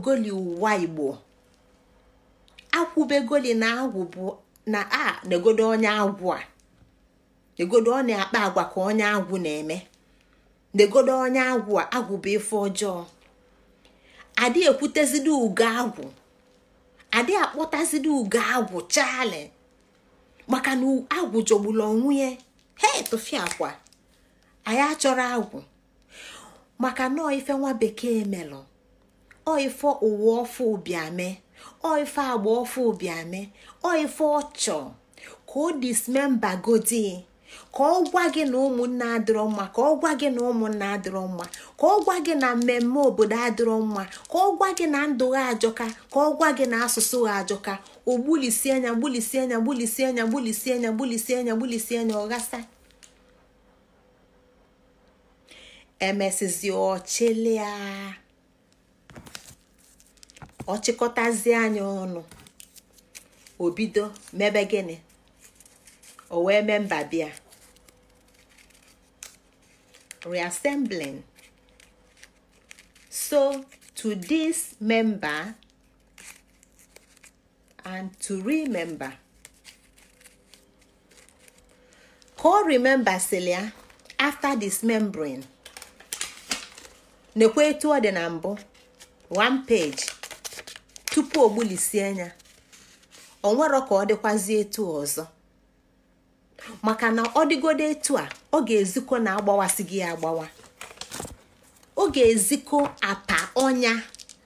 goli ụwa igbo akwụbegoli na agwụ bụ na a na-egodo onye agwụ a egodo ọ na-akpa agwa ka onye agwụ na-eme degodo onye agwụ a agwụ bụ ife ọjọọ adị ekwutezidi ugo agwụ adị akpọtazidi ugo agwụ chali maka na agwụ jọgburu onwunye ya he tụfiakwa anyị achọrọ agwụ maka na ife nwa bekee melụ oife ụwa ọfụ obiame oife agba ọfụ obiame oife ọchọ ka o dismemba godi ka ọ gwa gị na ụmụnne adịrọ mma ka ọ gwa gị na ụmụnna adịrọ mma ka ọ gwa gị na mmemme obodo adịrọ mma ka ọ gwa gị na ndụ ha ajọka ka ọ gwa gị na asụsụ ha ajọka o gbulisi anya gbulisi anya gbulisi anya gbulisi anya gbulisi anya gbulisi anya ọ emesizi ọchịlịa ọchịkọtazie anya ọnụ obido mebe gịnị o wee mee mba bịa reassembling. So, to member and to remember. Ka ọ remembasịrị ya after membrane. N'ekwo etu ọ dị na mbụ one page tupu o gbulisie anya o nwere ka ọ dịkwazi etu ọzọ maka na ọ dịgodo etu a ọ ga-ezikọ na agbawa ọ ga-ezikọ apa ọnya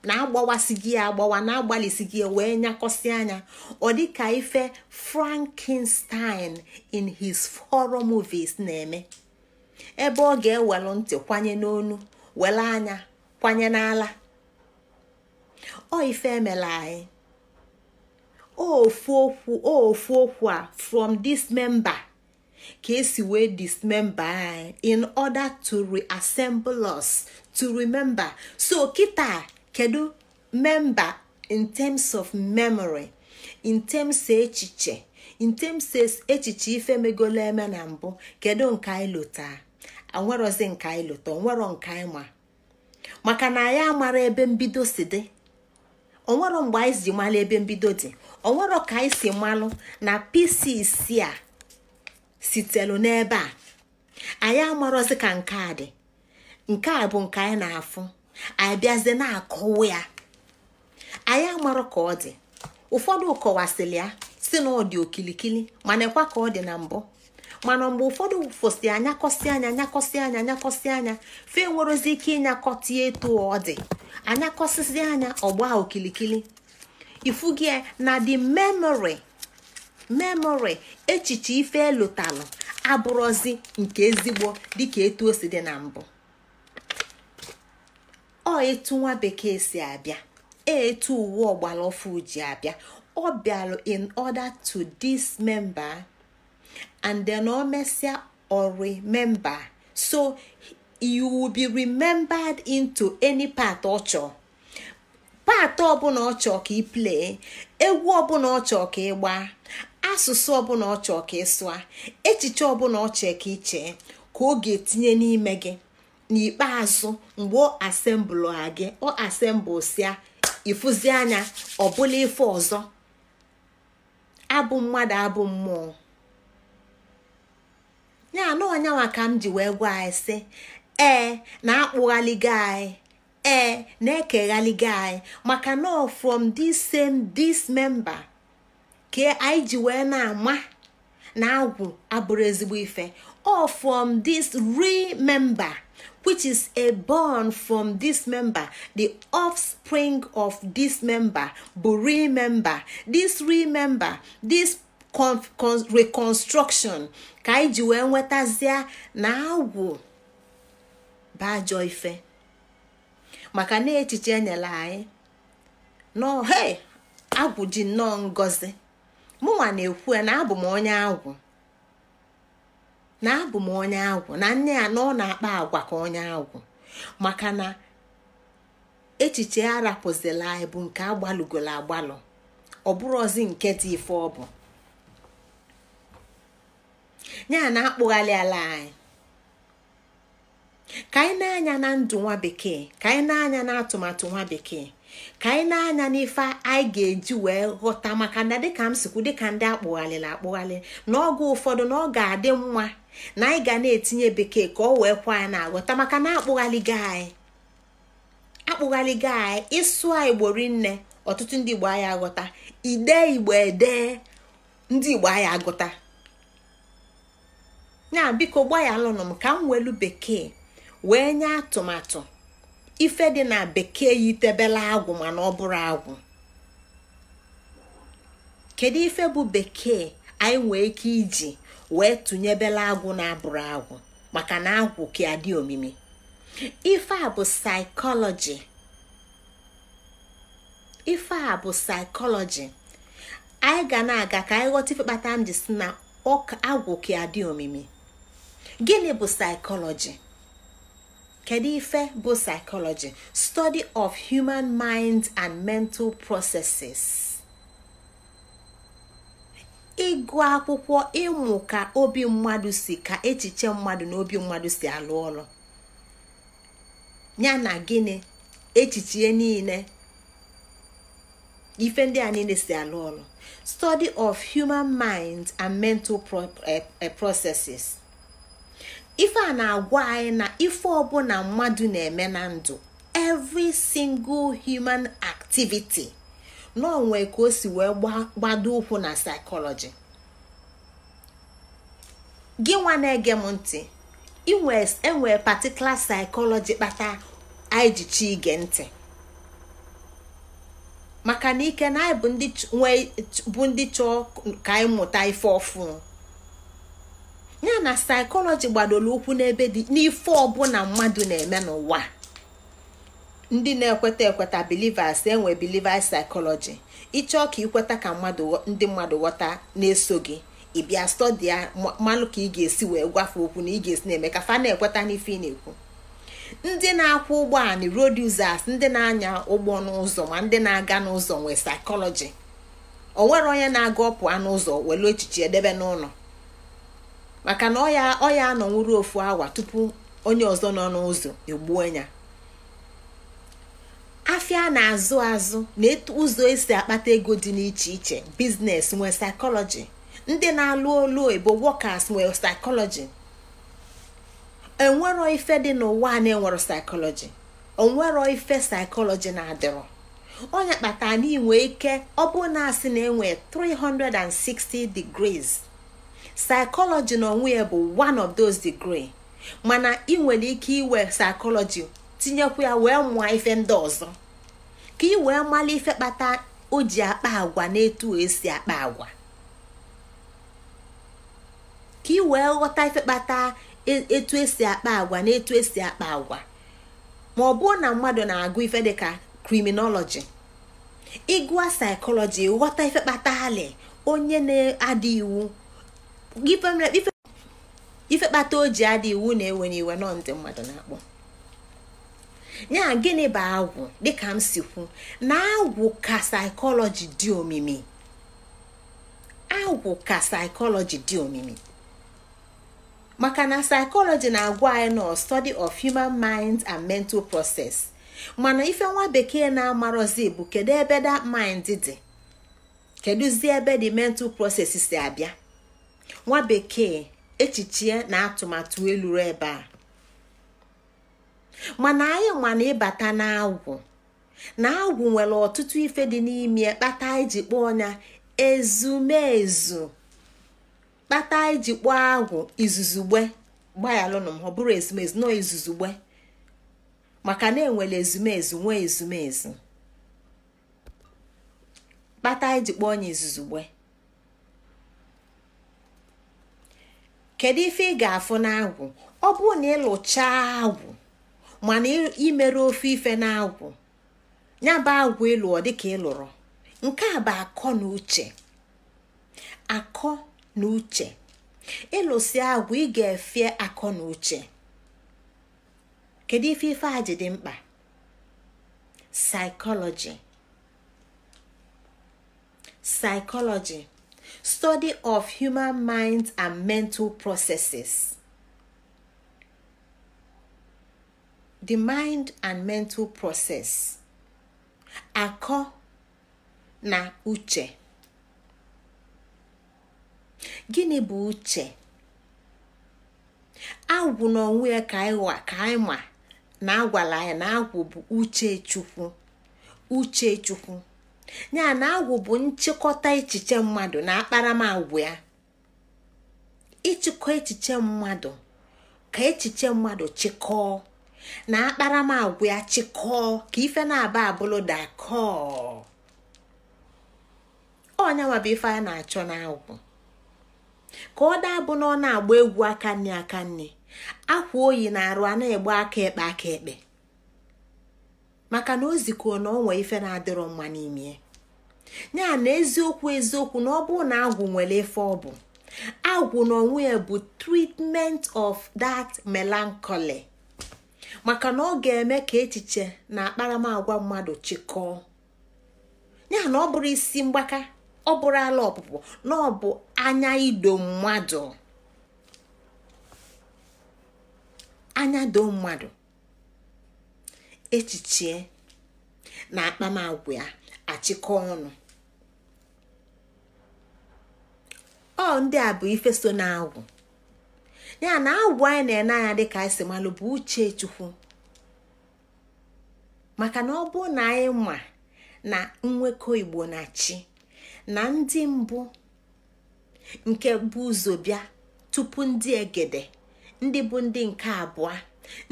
na agbawasị gị agbawa na-agbalịsị gị wee nyakọsị anya ọ dịka ife Frankenstein in his horror movies na-eme ebe ọ ga-ewelu ntị kwanye n'onu wele anya kwanye n'ala ọ ife emela anyị ofu okwu ofu okwu a from this member. ka esi wee memba anyị in order to reassemble us to remember so kita kedu memba in terms of memory in terms e echiche in terms e echiche ife megolo eme na mbụ kedu nke anyị lụta anwerozi nke anyị lụta onwero nke anyị ma maka na anyị amara ebe mbido si dị onwero mgbe anyị si malụ ebe mbido dị onwero ka anyị si malụ na pcc a sitelu n'ebe a anyị amarozi ka nke a dị nke a bụ nke anyị na-afụ anyị bịazie na-akọwa ya anyị amarọ ka ọ dị ụfọdụ kọwasịrị ya si na ọ dị okilikili mana ekwa ka ọ dị na mbụ mana mgbe ụfọdụ fosi anyakọsị anya anyakọsị anya anyakọsị anya fe nwerozi ike ịnyakọta etu ọ dị anyakọsịsị anya ọgba okilikili ifu gị na the memory. memory echiche ife elotalụ abụrụzi nke ezigbo dịka etu o si dị na mbụ ọ etu nwa bekee si abịa e etu uwe ọgbara ọfụ ji abịa ọ bịalụ in order to dis member and then o mesịa ori member so you will be remembered into any part ọ chọọ paatị ọbụla ọ chọọ ka ị play, egwu ọbụla ọ chọọ ka ị gbaa asụsụ ọbụla ọ chọọ ka ị echiche ọbụla ọ chọọ ka ị ka ọ ga-etinye n'ime gị n'ikpeazụ mgbe ọ asembụl ha gị ọ asembụl sia ịfụzi anya ọbụla ife ọzọ abụ mmadụ abụ mmụọ ya anọ ọnyanwa ka m ji wee gwa anyị sị ee na-akpụghaligo anyị ee na-ekeghaligo anyị maka na from this same this member. ka anyị ji wee na-ama na agwụ abụrụ ezigbo ife or from this remember which is a born from this member the offspring of this member bụ remember this remember this reconstruction ka anyị ji wee nwetazie na agwụ bụ ife maka na echiche enyela anyị nọ he agwụ ji nnọọ ngozi mụnwa na-ekwu na abụ m onye agwụ na abụ m onye agwụ na nne ya na ọ na-akpa agwa ka onye agwụ maka na echiche arapụzila anyị bụ nke agbalụgolo agbalụ ọ bụrụ nke dị ife ọ bụ ya na-akpụghalị ala anyị ka anyị na-anya na ndụ nwa bekee ka anyị na-anya na atụmatụ nwa bekee ka anyị na-anya n'ife anyị ga-eji wee ghọta maka na dịka m sikwu dịka ndị na akpụghalị n'oge ụfọdụ na ọ ga-adị mma na anyị ga na-etinye bekee ka ọ wee kwa anyị na-aghọta maka na akpụghalịgo anyị akpụghalịgo anyị ịsụ anyị gbori nne ọtụtụ ndị igbo anyị aghọta ide igbo ede ndị igbo anyị aghọta ya biko ya lụnụ m ka m welu bekee wee nye atụmatụ ife dị na bekee ya itebela agwụ mana ọ bụrụ agwụ kedu ife bụ bekee anyị nwee ike iji wee tụnyebela agwụ na-abụrụ agwụ maka na agwụ ka adị omimi ife a bụ saịkọlọji ife a bụ saịkọlọji anyị ga na-aga ka anyị ghọta ife kpata m ji si na agwụ ka adị omimi gịnị bụ saịkọlọji kedu ife bụ psychology study of human mind and mental processes ịgụ akwụkwọ ịmụ ka obi mmadụ si ka echiche mmadụ na obi mmadụ si alụ ọrụ ya na gịnị echiche niile ife ndị a niile si alụ ọrụ study of human mind and mental eh, eh, processes ife a na-agwa anyị na ife ọbụla mmadụ na-eme na ndụ every single human activity n'onwe ka o si wee gbado ụkwụ na psychology gị nwa na-ege m ntị enwere particular psychology kpata anyị ji chi ige ntị maka na ike na anyị bụ ndị chọọ ka anyị mụta ife ọfụ ya na saịkọlọji gbadoro ụkwụ n'ebe dị n'ife ọbụla mmadụ na-eme n'ụwa ndị na-ekweta ekweta bilivers enwe bilivers saịkọlọji ịchọọ ka ikweta ka mmadụ ndị mmadụ ghọta na-eso gị ịbịa stọdia mmanụ ka ị ga-esi wee gwafe okwu na ị ga-esi na-eme ka fa na-ekweta n'ife ị na-ekwu ndị na-akwụ ụgbọala road users ndị na-anya ụgbọ n'ụzọ ma ndị na-aga n'ụzọ nwee saịkọlọji o nwere onye na-aga ọpụ n'ụzọ welu echiche edebe n'ụlọ maka na ọ ya anọnwụrụ ofu awa tupu onye ọzọ nọ n'ụzọ egbuo ya afịa na-azụ azụ na etu ụzọ esi akpata ego dị n'iche iche biznes nwee saịkọlọji ndị na-alụ olu oyibo wọkas nwere saịkọlọji enwero ife dị n'ụwa na-enwero saịkọlọji onwero ife saịkọlọji na-adịrọ onye kpata n'inwe ike ọ bụ na asị na enwe 360 degrees psychology na onwe ya bụ one of those degree mana ị nwere ike iwe psychology tinyekwu ya wee mụọ ife ndị ọzọ ka ị wee mara ife kpata o ji akpa agwa na etu esi akpa agwa ka ị wee ghọta ife kpata e, etu esi akpa agwa na etu esi akpa agwa ma ọ bụrụ na mmadụ na-agụ ife dịka criminology ịgụa psychology ghọta ife kpata hali onye na-ada iwu ife kpata o ji adị iwu na-ewe n'iwe nọ ndị mmadụ na-akpọ ya gịnị bụ agwụ dịka m si kwu na agwụ ka saịkọlọji dị omimi agwụ ka dị omimi maka na saịkọlọji na-agwa anyị nọ study of human mind and mental process mana ife nwa bekee na amarozi bụ kedu ebe that mind dị ebe the mental process si abịa nwa bekee echiche na atụmatụ eluru ebe a mana anyị ịbata na ịbata n'agwụ na agwụ nwere ọtụtụ ife dị n'ime kpata iji kpọọ ọnya ezumezu kpata iji kpọọ agwụ izuzugbe gbayalụnụ m ọ bụrụ ezumezu nọ izuzugbe maka na enwere ezumezu nwee ezumezu kpata iji kpọọ ọnya izuzugbe kedu ife ị ga-afụ n'agwụ ọ bụrụ na ịlụchaa agwụ mana imere ofe ife n'agwụ ya bụ agwụ ịlụọ dịka ịlụrụ nke a bụ akọ na uche akọ na uche ịlụsi agwụ ị ga efe akọ na uche kedu ife ife a ji dị mkpa saịkọlọji saịkọlọji study of human minds and mental processes. The mind and mental process. Akọ na uche. Gịnị bụ uche? Agwụ n'onwe ya ka anyị ma na agwala ya na agwụ bụ uche Chukwu. Uche Chukwu. ya na agwụ bụ nchịkọta echiche mmadụ na akparamagwa ya ịchịkọ echiche mmadụ ka echiche mmadụ chịkọọ na akparamagwa ya chịkọọ ka ife na-aba abụlụ dakọọ ọnya nwabụ ife a na-achọ n'agwụ ka ọ daa bụ na ọ na-agba egwu aka nne aka nne akwa oyi na arụ a na-egbu aka ekpe aka ekpe maka na o zikuo na ọ ife na-adịrọ mma n'ime ya na eziokwu eziokwu na ọ bụrụ na agwụ nwere ife ọ bụ agwụ na onwe ya bụ treatment of that melancholy maka na ọ ga-eme ka echiche na akparamagwa mmadụ chịkọọ ya na ọ bụrụ isi mgbaka ọ bụrụ ala ọpụpụ na ọ bụ anya ido mmadụ anya do mmadụ echiche na akpamagwa ya achịkọ ọnụ ọ ndị a bụ ife so na ya na agwụ anyị na-ene anya dịka anyị malụ bụ uche chukwu maka na ọ bụ na anyị ma na nnwekọ igbo na chi na ndị mbụ nke bụ ụzọ bịa tupu ndị egede ndị bụ ndị nke abụọ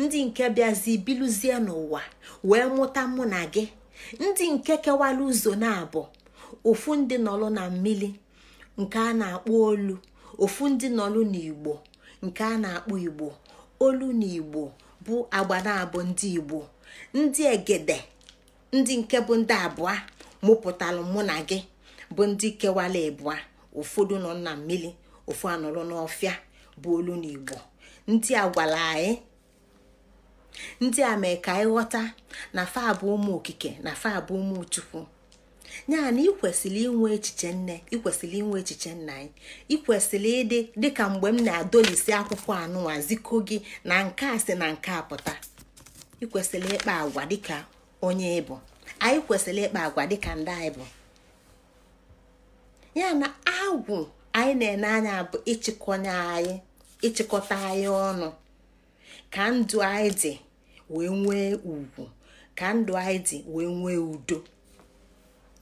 ndị nke bịazi biluzie n'ụwa wee mụta mụ na gị ndị nke kewara ụzọ na-abụ ụfụ ndị nọlụ na mmili nke a na-akpọ olu ofu ndị nọlụ n'igbo nke a na-akpọ igbo olu na igbo bụ agba na-abụ ndị igbo ndị egede ndị nke bụ ndị abụọ mụpụtalụ mụ na gị bụ ndị kewara ịbụa ụfọdụ nọ na mmiri ofu anọrọ n'ọfịa bụ olu na igbo ndị a gwara anyị ndị a mee ka anyị ghọta na fa bụ ụmụ okike na fa bụ ụmụ chukwu ya na ikwesịrị inwe echiche nne ikwesịrị inwe echiche nna anyị ikwesịrị ịdị dịka mgbe m na-adolisi akwụkwọ anụwa ziko gị na nke a si na nke a pụta ikwesịrị ịkpa agwa dịka onye ịbụ anyị kwesịrị ịkpa agwa dịka ndị anyị bụ ya na agwụ anyị na-ene anya bụ ịchịkọnye anyị ịchịkọta anyị ọnụ ka ndụ anyị dị wee nwee ugwu ka ndụ anyị dị wee nwee udo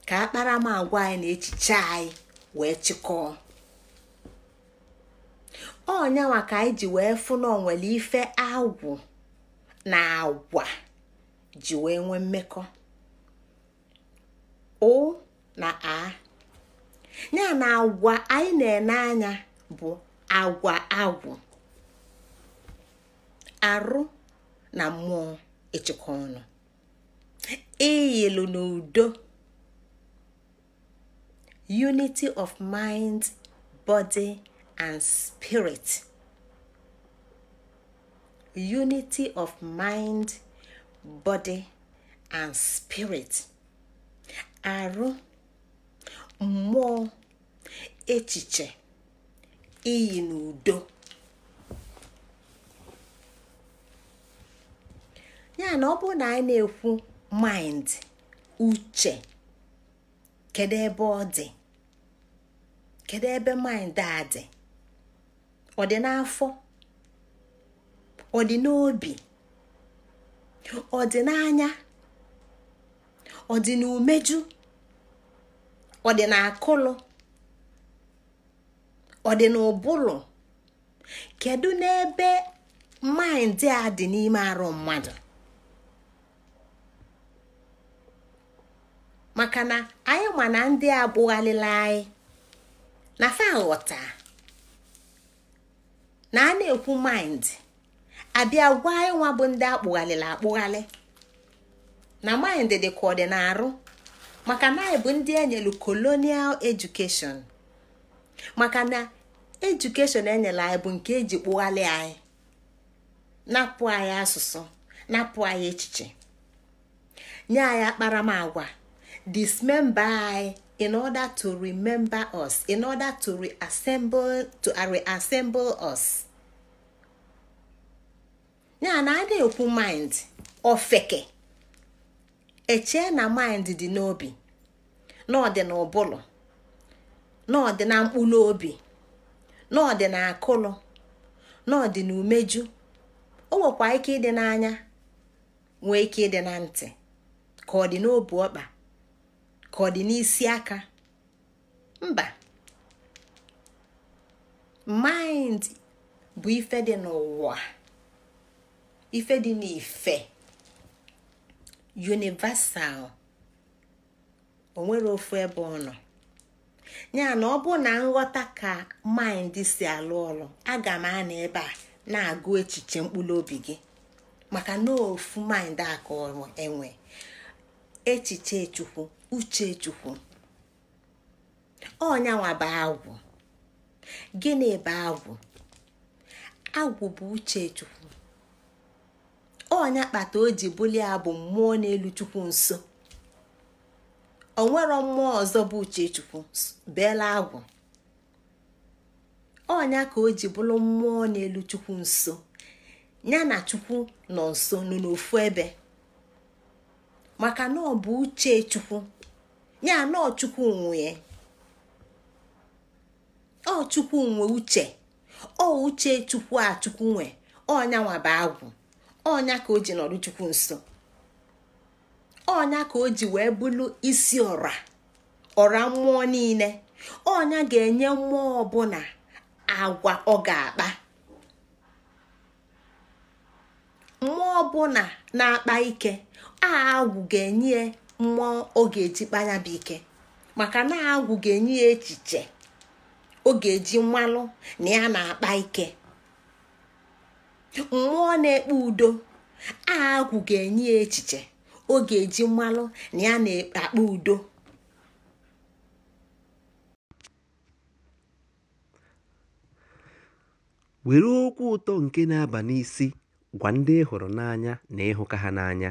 ka akparamagwa anyị na echiche anyị wee chịkọọ ọnyanwa ka anyị ji wee fụ na onwere ife agwụ na agwa ji wee nwee mmekọ o na a ya na agwa anyị na-ene anya bụ agwa agwụ arụ na mmụọ ịchịkọ ọnụ ịyịlụ e n'udo unity of mind body and spirit arụ mmụọ echiche iyi n'udo ya na ọ bụrụ na anyị na-ekwu maịnd uche kedu ebe ọ dị kedu ebe maịnd a dị ọ dị n'afọ ọ dị n'obi ọ dị n'anya ọ dị n'umeju ọ dị n'akụlụ ọ dị n'ụbụrụ kedu n'ebe maịndị a dị n'ime arụ mmadụ maka na anyị ma na ndị a anyị na fa ghọta na a na-ekwu mind abịa gwa anyị nwa bụ ndị akpụghalịla akpụghalị na mind dị ka ọ dị na-arụ maka na anyị bụ ndị enyelu kolonial education maka na edukeshọn enyere anyị bụ nke eji kpụghalị anyị napụ anyị asụsụ napụ anyị echiche nye anyị akparamagwa dismember anyị in order to remember us in order to reassemble to uh, reassemble us ya na adịghị ekwu mind ofeke echee na mind dị n'obi na ọbụla, dị na n'obi, na mkpụrụ obi na akụlụ na ọ umeju o nwekwa ike ịdị n'anya nwee ike ịdị na ntị ka ọ dị n'obi ọkpa ka ọ dị n'isi aka mba mind bụ ife dị n'ụwa ife dị n'ife universal onwere ofu ebe ọ nọ ya na ọ bụ na nghọta ka maịndị si alụ ọrụ aga m anọ ebe a na-agụ echiche mkpụrụ obi gị maka na ofu mind aka ọrụ enwe echiche chukwu uchechukwu ọnyanwa bụ agwụ gịnị bụ agwụ agwụ bụ uchechukwu ọnya kpata o ji bulie abụ mmụọ n'elu chukwu nso nwere mmụọ ọzọ bụ uchechukwu beela agwụ ọnya ka o ji mmụọ n'elu chukwu nso ya na chukwu nọ nso nọ n'ofu ebe maka na ọ bụ uche chukwu ya na ọchukwu nwee ọchukwu nwe uche ọ uche chukwu a chukwu nwe ọnya nwaba agwụ ọnya ka o ji nọrụ chukwu nso ọnya ka o ji wee bụrụ isi ọra ọra mmụọ niile ọnya ga-enye mmụọ ọbụla agwa ọ ga-akpa mmụọ ọbụla na-akpa ike a agwụ ga-enye mmụọ ọ ga-eji kpanya bụ ike maka na agwụ ga-enye echiche ọ ga-eji mmalụ na ya na-akpa ike mmụọ na-ekpe udo agwụ ga-enye ya echiche ọ eji mmalụ na ya na-akpa udo were okwu ụtọ nke na-aba n'isi gwa ndị ị hụrụ n'anya na ịhụka ha n'anya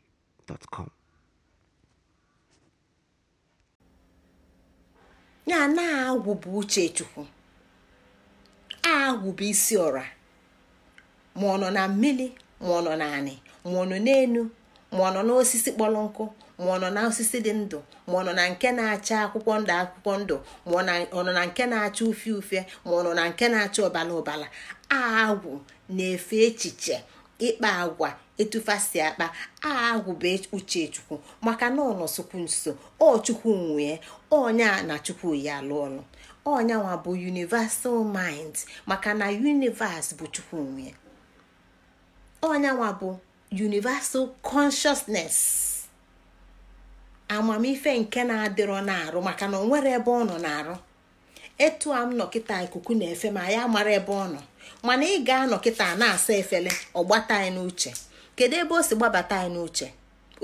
gmail.com. na agwụ bụ uchechukwu agwụ bụ isi ọra ma ọ nọ na mmiri ma ọ nọ na anị ma ọ nọ n'enu ma ọ nọ n'osisi kpọrọ nkụ ma ọ nọ na osisi dị ndụ ma ọ nọ na nke na-acha akwụkwọ ndụ akwụkwọ ndụ ma ọ nọ na nke na-acha ufie ufie ma ọ nọ na nke na-acha ọbala ọbala agwụ na-efe echiche ịkpa agwa etufasi akpa e- uche uchechukwu maka na ọ nọsokwu nso ọ chukwu nwee a na chukwu ya alụ ọlụ ọnyanwa bụ universal mind maka na universe bụ chukwu nwee ọnyanwa bụ universal consciousness amamife nke na-adịrọ na-arụ maka na ọ nwere ebe ọ nọ na-arụ etu a m nọ ikuku na-efe ma ya mara ebe ọ nọ mana ị ga-anọ kịta na-asa efele gbata anyị n'uche kedu ebe o si gbabata anyị n'uche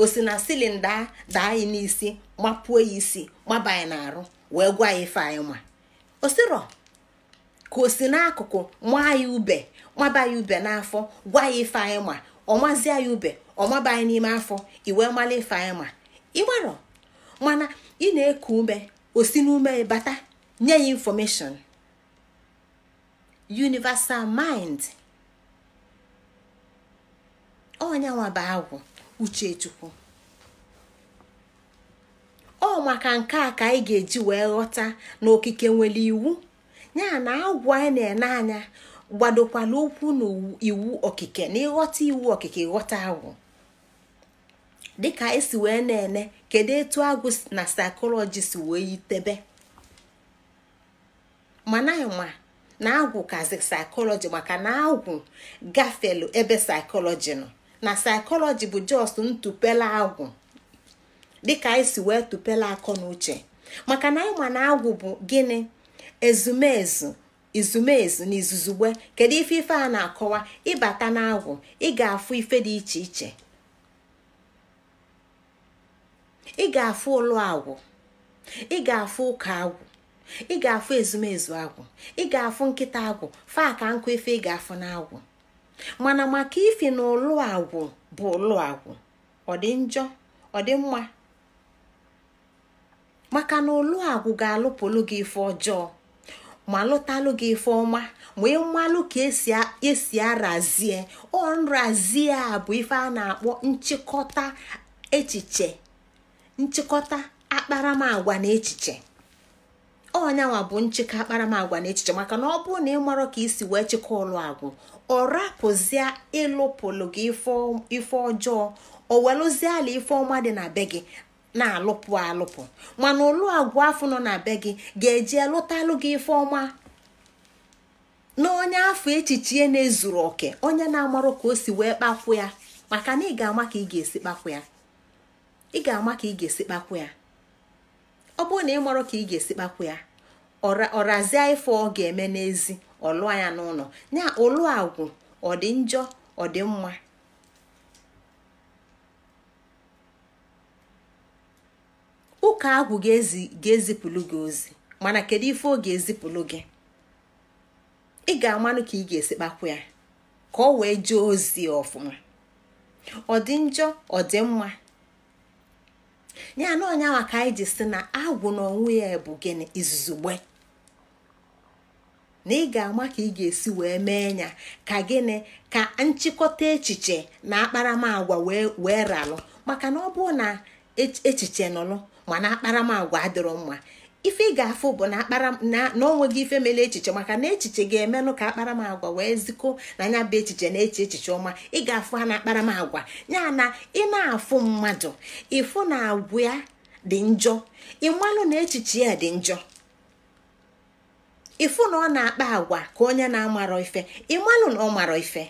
o si na silinda daa anyị n'isi mapuo ya isi gbaba anyị n'arụ wee gwa ya ife anyị ma ka o si n'akụkụ maa ya ube maba ya ube n'afọ gwa ya ife anyị ma ọmazie ya ube ọmaba anyị n'ime afọ iwe mala ife anyị ma ịgbarọ mana ị na-eku ume o si n'ume bata nye ya infọmeshọn universal mind onye nwaba agwụ uchechukwu ọ maka nke a ka anyị ga-eji wee ghọta na okike nwere iwu ya na agwụ anyị na-ene anya gbadokwala okwu na iwu okike na ịghọta iwu okike ghọta agwụ dịka esi wee na-ene kedu etu agwụ na saịkọlọji si wee yitebe mana ma na agwụ kazi saịkọlọji maka na agwụ gafelu ebe saịkọlọji nọ na saịkọlọji bụ just ntụpela agwụ dịka anyị e si wee tụpela akọ na uche maka na anyị ma na agwụ bụ gịnị ezumezu izumezu na izuzugbe kedu ife ife a na-akọwa ịbata na agwụ ị ga-afụ ife dị iche iche ị ga-afụ ụlọ agwụ ị ga-afụ ụka agwụ ị ga-afụ ezumezu agwụ ị ga-afụ nkịta agwụ faa ka nkụ ife ị ga-afụ n'agwụ mana maka ifi na ụlụ agwụ bụ ụlụ agwụ ọ dị njọ ọ dị mma maka na ụlụ agwụ ga-alụpụlụ gị ife ọjọọ ma lụtalụ gị ife ọma ma ịmalụ ka esi arazie ọ nrazie a bụ ife a na-akpọ nchịkọta echiche nchịkọta akparamagwa na echiche ọnyanwa bụ nchekwa akparamagwa na echiche maka na ọ bụrụ na ị marọ ka isi wee chịkọ ụlọ agwụ ọ rapụzie ịlụpụlụ gị ife ọjọọ o welụzie ala ife ọma dị na be gị na-alụpụ alụpụ mana ụlọ agwụ afọ nọ na be gị ga-eji lụtalụ gị ife ọma na onye afọ echiche na-ezuru oke onye na-amarụ ka o si wee kpakwu ya maka na ị ga-ama ka ị ga-esi kpakwu ya ị ga-ama ka ị ga-esi kpakwu ya ọ bụrụ na ị marụ ka ị ga-esi kpakwu ya ọrazie ife ọ ga-eme n'ezi ọlụọ ya n'ụlọ ya ụlụ agwụ ọ dị njọ ọ dị mma ụka agwụ ga-ezipụlụ gị ozi mana kedu ife ọ ga-ezipụlụ gị ị ga-amanụ ka ị ga-esi kpakwu ya ka ọ wee jee ozi ọfụma ọ dị njọ ọ dị mma ya na ka anyị ji si na agwụ na onwe ya bụ gịnị izuzugbe na ị ga-ama ka ị ga-esi wee mee ya ka gịnị ka nchịkọta echiche na akparamagwa wee ralụ maka na ọ bụrụ na echiche nọlụ mana akparamagwa adịrọ mma ife ị ga-afụ bụ na n'onweghị ife mere echiche maka na echiche ga-emenụ ka akparamagwa wee zikọ na anya bụ echiche na-eche echiche ọma ị ga-afụ ha na akparamagwa ya na ị na-afụ mmadụ ịfụ na agwa ya dị njọ ịmalụ na echiche ya dị njọ ịfụ na ọ na-akpa agwa ka onye na-amarọ ife ịmalụ na ọ marọ ife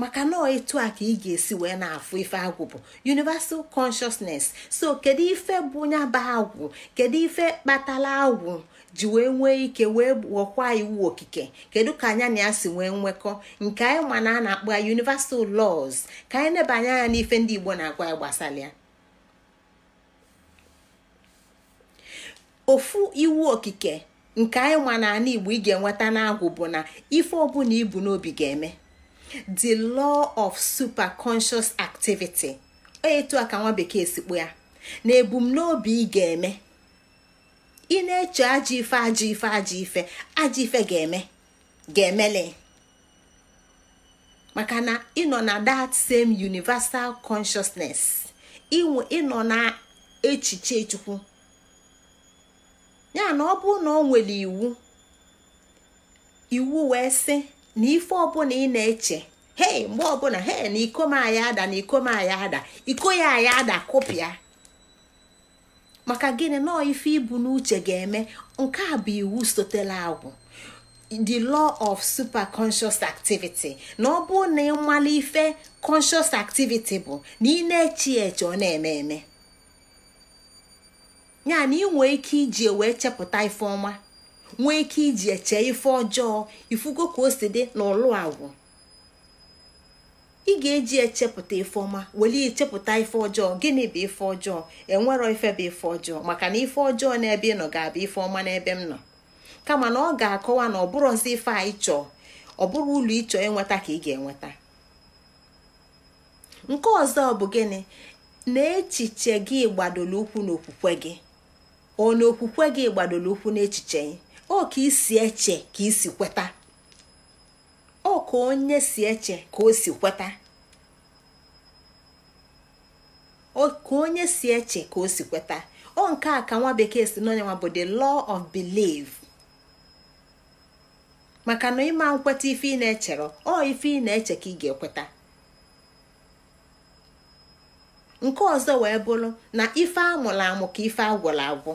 maka na etu a ka ị ga-esi wee na-afụ ife agwụ bụ universal consciousness so kedu ife bụ nyaba agwụ kedu ife kpatala agwụ ji wee nwee ike wee ghọkwa iwu okike kedu ka anya na ya si nwee nwekọ nke anyị ma na a na-akpọ ya universal laws ka anyị nebanye anya n'ife ndị igbo na-agwa ya gbasara ya ofu iwu okike nke anyị na n'ala igbo ị ga-enweta n'agwụ bụ na ife ọbụla ibu n'obi ga-eme the law of super superconscious activity etu a ka nwa bekee sikpo ya na ebumnobi ị ga-eme ị na-eche ajọ ife ajọ ife ajọ ife ajọ ife ga-eme ga-emele maka na nọ na that same universal consciousness ịnọ na echiche chukwu ya na ọ bụrụ na ọ nwere iwu iwu wee sị na ife ọbụla ị na-eche he mgbe ọbụla hei na iko m aya ada na iko m ada iko ya aya ada kụpịa maka gịnị nọọ ife ibu n'uche ga-eme nke a bụ iwu sotela agwụ the law of super conscious activity na ọ bụrụ na ịmala ife conscious activity bụ na ị na ya eche ọ na-eme eme ya na ị nwee ike iji wee chepụta ife ọma nwee ike iji eche ife ọjọọ ifugo ka o si dị n'ụlụ agwụ ị ga-eji echepụta ife ọma weli chepụta ife ọjọọ gịnị bụ ife ọjọọ enwerọ ife bụ ife ọjọọ maka na ife ọjọọ n'ebe ị nọ ga-abụ ife ọma n'ebe m nọ kama na ọ ga-akọwa na ọ bụrụzi ife a chọọ ọ bụrụ ụlọ ịchọ enweta ka ị ga-enweta nke ọzọ bụ gịnị na echiche gị gbadoro ụkwụ n'okwukwe gị ọ na okwukwe gị gbadoro ụkwụ n'echiche o ka isi eche ka isi kweta o ka onye si eche ka o si kweta ka onye si eche ka o kweta ọ nke a ka nwa bekee si n'onye nwa bụ the law of belief maka na ịma nkweta ife i na-echere ọ ife ị na-eche ka ị ga-ekweta nke ọzọ wee bụrụ na ife amụrụ amụ ka ife agwụrụ agwụ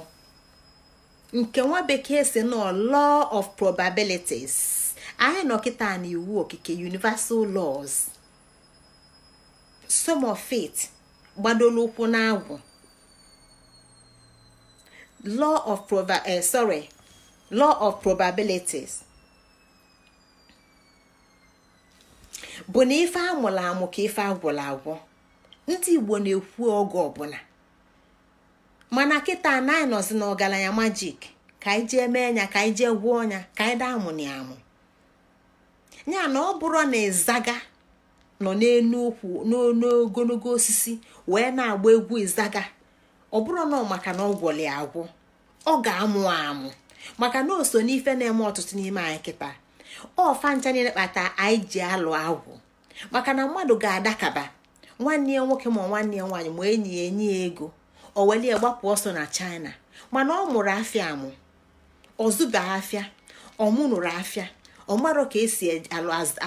nke nwa bekee si nọ law of probabilities anyị nọ kịta na iwu okike universal laws some of it gbadoro ụkwụ n'agwụ law of eh, of probabilities bụ na ife amụrụ amụ ka ife agwụrụ agwụ ndị Igbo na-ekwu oge ọbụla mana kịta na anyị nọzi n'ọgaranya majik ka anyị jee mee nya ka anyị jee gwuo ọnya ka anyị daa amụ na amụ ya na ọ bụrụ na ịzaga nọ n'elu ukwu n'ogologo osisi wee na-agba egwu ịzaga ọ bụrụ na maka na ọ gwọli agwụ ọ ga-amụ amụ maka na o so n'ife na-eme ọtụtụ n'ime anyị kịta ọfa ncha niile kpata anyị ji alụ agwụ maka na mmadụ ga-adakaba nwanne ya nwoke ma nwanne ya nwaanyị ma enyi ya enye ya ego o welie gbapụ ọsọ na china mana ọ mụrụ afịa amụ ọzụba afịa ọmụnụrụ afịa ọmarụ ka esi e,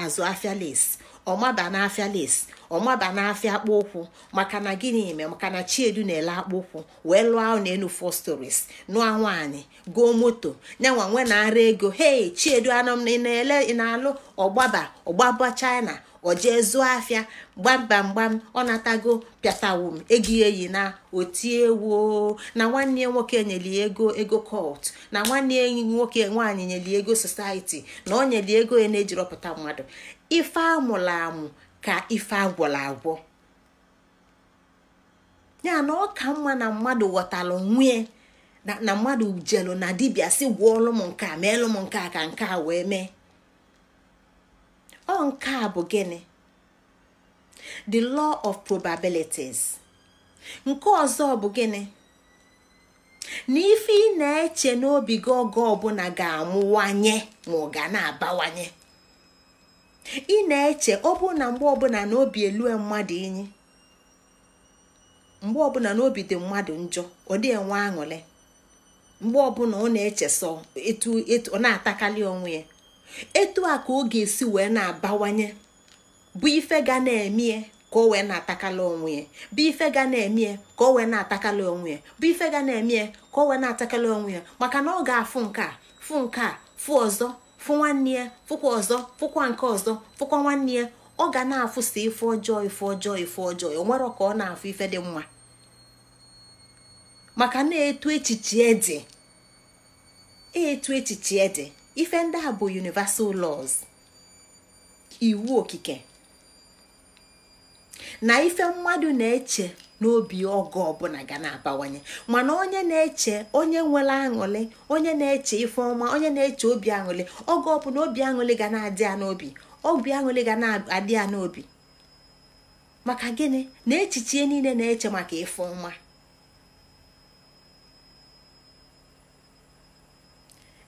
azụ afịa lesi ọmaba n'afịa lesi ọmaba n'afịa akpụ ụkwụ maka na gịnị eme maka na chiedu na-ele akpụ ụkwụ wee lụọ n'elu four stories nụọ nwaanyị gụọ moto nyanwa nwe na-ara ego hei chiedu anọ na-ele na-alụ ọgbaba ọgbaba china o jee zụọ afịa gbamba ọ natago pịatawum ego eyi na otiewo na nwanne ya nwoke nyeli ego ego kọt na nwanne ya nwoke nwaanyị nyeli ego society na ọ nyeli ego ya na-ejirọpụta mmadụ ife amụrụ amụ ka ife agwọrọ agwọ ya na ọ ka mma na mmadụ ghọtara nwunye na mmadụ jelu na dibịa si gwọọlụ m nke a meelụ m nke a ka nke a wee mee ọ a bụ gịnị the law of probabilities nke ọzọ bụ gịnị na ife ị na-eche n'obi gị oge ọbụla ga-amụwanye ma ọ ga na-abawanye ị na-eche ọbụ na mgbe ọbụla n'obi elue mmadụ inyi mgbe ọbụla n'obi dị mmadụ njọ ọ dị enwe aṅụle mgbe ọbụla ọ na-eche etu ọ na-atakalị onwe ya etu a ka ọ ga-esi wee na-abawanye bụ ife ga na eme ka o wee na-atakala onwe ya bụ ife ga na-emie ka o wee na-atakala onwe ya bụ ife ga na-emie ka o wee na-atakala onwe ya maka na ọ ga-afụ nke a fụ nke a fụ ọzọ fụ nwanne ya fụkwa ọzọ fụkwa nke ọzọ fụkwa nwanne ya ọ ga na afụsa ife ọjọọ ife ọjọọ ife ọjọọ o nwere ka ọ na-afụ ife dị mma maka na-etu echiche dị etu echiche dị ife ndị a bụ universal laws iwu okike na ife mmadụ na-eche n'obi ọgụ ọbụla ga na-abawanye mana onye na-eche onye nwere aṅụlị onye na-eche ife onye na-eche obi aṅụlị oge ọbụla obi aṅụlị ga na-adị ya n'obi obi aṅụlị ga na-adị ya n'obi maka gịnị na echiche niile na-eche maka ife ọma